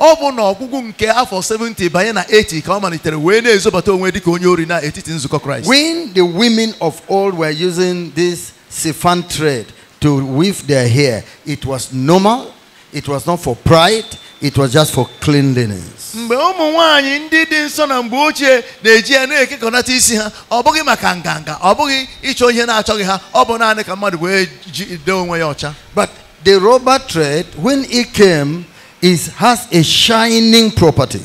ọ bụ na ọgwụgwụ nke afọ 70 banye na 80 ka ọ malitere wee na-ezobata onwe dịka onye ori na etiti nzukọ kraịst when the women of old were using this siphon thread to weave their hair it was normal it was not for pride it was just for cleanliness mgbe ụmụ ndị dị nsọ na mgbe ochie na-eji ya na-ekekọnata isi ha ọ bụghị maka nganga ọ bụghị ịchọ ihe na-achọghị ha ọ bụ naanị ka mmadụ wee jide onwe ya ọcha but the rubber thread when it came is has a shining property.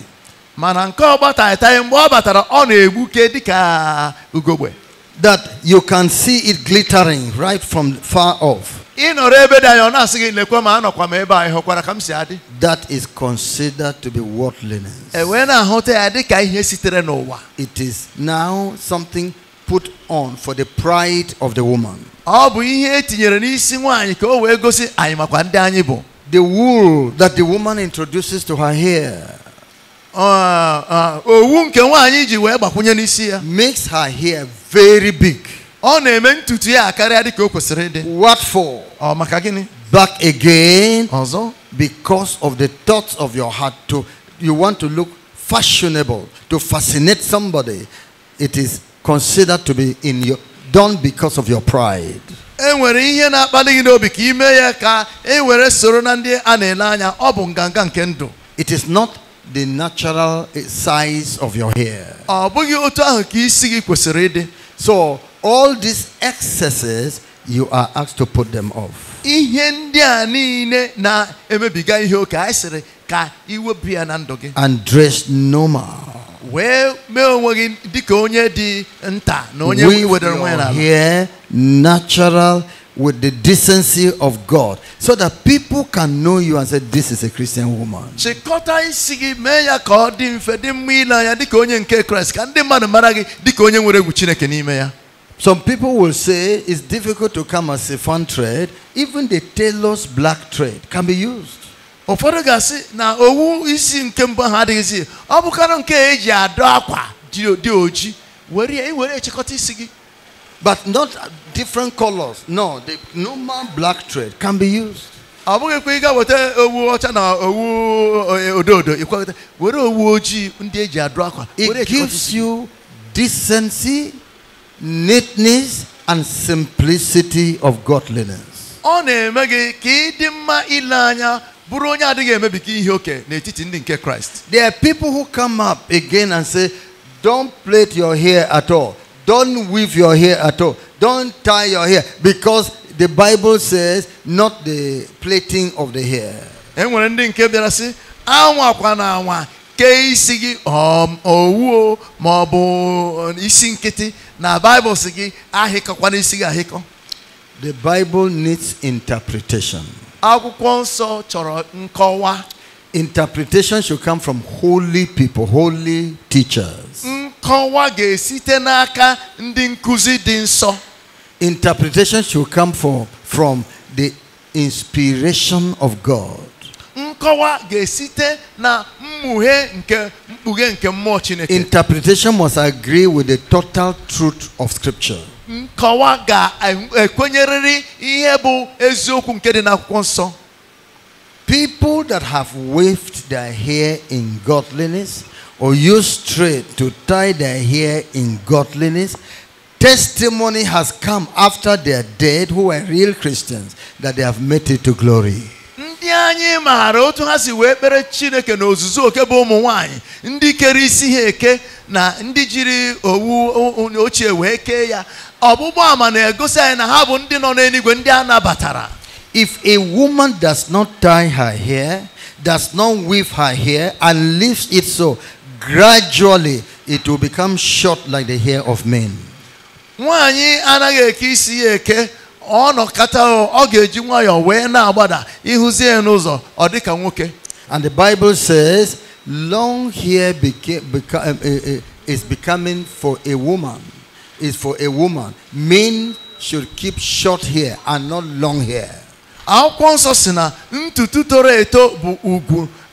mana nke mgbe ọ batara ọ na-egbuke ugogbe that you can see it glittering right from far off ị nọrọ ebe dị anya ọ na-asị gị lekwa ma anọkwa m ebe ka m si adị that is considered to be worldliness e wee na-ahụta ya ihe sitere n'ụwa it is now something put on for the pride of the woman ọ bụ ihe n'isi nwaanyị ka o wee gosi anyị makwa ndị anyị bụ the wool that the woman introduces to her hair uh, uh, makes her hair very big what for back again Also? because of the thoughts of your heart to you want to look fashionable to fascinate somebody it is considered to be in your done because of your pride e nwere ihe na-akpali gị n'obi ka ime ya ka e were soro na ndị a na-ele anya ọ bụ nganga nke ndụ it is not the natural size of your hair ọ bụghị otu ahụ ka isi gị kwesịrị ịdị so all these excesses you are asked to put them off ihe ndị a niile na-emebiga ihe oke anyị sịrị ka iwepụ ya na ndụ gị and dress normal wee mee onwe gị dịka onye dị nta na onye wedara onwe ya n'ala natural with the decency of God so that people can know you and say this is a Christian woman. ya onye nke onye ya. Some people will say it's difficult to come as a fun trade. Even the tailor's black trade can be used. Ụfọdụ na owu isi nke mbụ ha adịghịzi ọ bụkara nke eji adọ akwa dị oji were were chịkọta But not different colors. No, the normal black thread can be used. it gives you decency neatness and simplicity of godliness there are people who come up again and say don't plait your hair at all don't weave your hair at all. Don't tie your hair because the Bible says not the plaiting of the hair. enwere ndị nke bịara sị anwakwa na anwa kee isi gị owuo ma ọ isi nkịtị na Bible sị gị ahịkọkwana isi gị ahịkọ the Bible needs interpretation akwụkwọ nsọ chọrọ nkọwa interpretation should come from holy people holy teachers mm nkọwa ga-esite n'aka ndị nkuzi dị nsọ. Interpretation should come from, from the inspiration of God. Nkọwa ga-esite na mmughe nke mkpughe nke mmụọ Chineke. Interpretation must agree with the total truth of scripture. Nkọwa ga-ekwenyerịrị ihe bụ eziokwu nke dị n'akwụkwọ nsọ. People that have waved their hair in godliness or use thread to tie their hair in godliness. Testimony has come after their dead who were real Christians that they have made it to glory. ndị anyị maara otu ha si wee kpere chineke na ozuzu oke bụ ụmụ nwanyị ndị kere isi ha eke na ndị jiri owu ochie wee kee ya ọgbụgba ama na-egosi anyị na ha bụ ndị nọ n'eluigwe ndị a nabatara if a woman does not tie her hair does not weave her hair and leaves it so gradually it will become short like the hair of men. and the bible says long hair became, um, eh, eh, is becoming for a woman is for a woman men should keep short hair and not long hair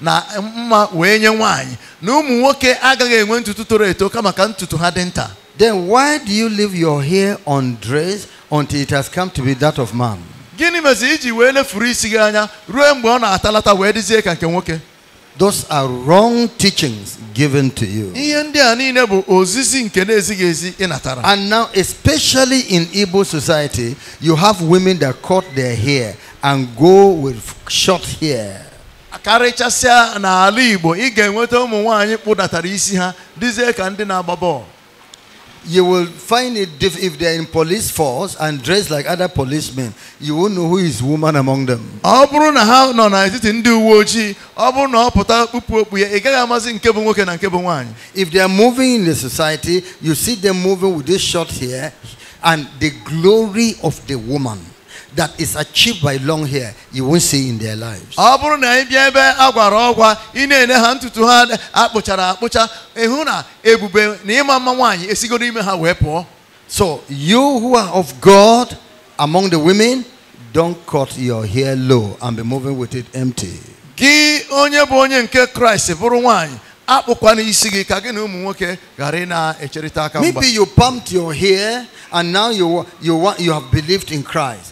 na mma wee nye nwanyị na ụmụ nwoke agaghị enwe ntutu toro eto kama ka ntutu ha dị nta then why do you leave your hair undressed until it has come to be that of man gịnị mezi iji wee lefuru isi gị anya ruo mgbe ọ na-atalata wee dịzie ka nke nwoke Those are wrong teachings given to you. And now, especially in Igbo society, you have women that cut their hair and go with short hair karịchasịa n'ala Igbo ị ga-enweta ụmụ nwaanyị kpụdatara isi ha dịzie ka ndị na-agba bọọlụ you will find it if they are in police force and dressed like other policemen you won't know who is woman among them if they are moving in the society you see them moving with this short hair and the glory of the woman that is achieved by long hair, you won't see in their lives. ọ bụrụ na ị bịa ebe ọgwa ị na-ene ha ntutu ha akpụchara akpụcha ịhụ na ebube na ịma mma nwaanyị ha wee pụọ so you who are of god among the women don't cut your hair low and be moving with it empty. gị onye bụ onye nke kraịst bụrụ nwaanyị maybe you pumped your hair and now you, you, you have believed in christ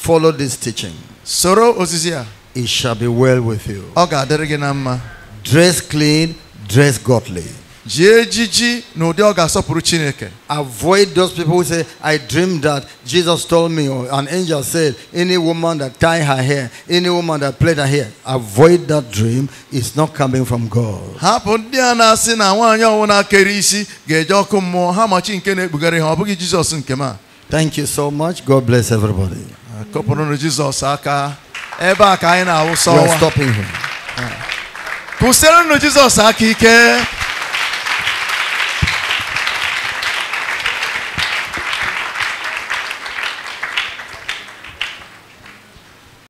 Follow this teaching. Soro osisia. It shall be well with you. Oga adịrị Dress clean, dress godly. Jie no, n'ụdị ọ Chineke. Avoid those people who say, I dreamed that Jesus told me, or an angel said, any woman that tie her hair, any woman that plait her hair, avoid that dream. It's not coming from God. ndị na ọkụ Thank you so much. God bless everybody. kụpụrụnụ Jizọs aka ebe a ka anyị na-awụsa ọwa kwụsịrịnụ Jizọs aka ike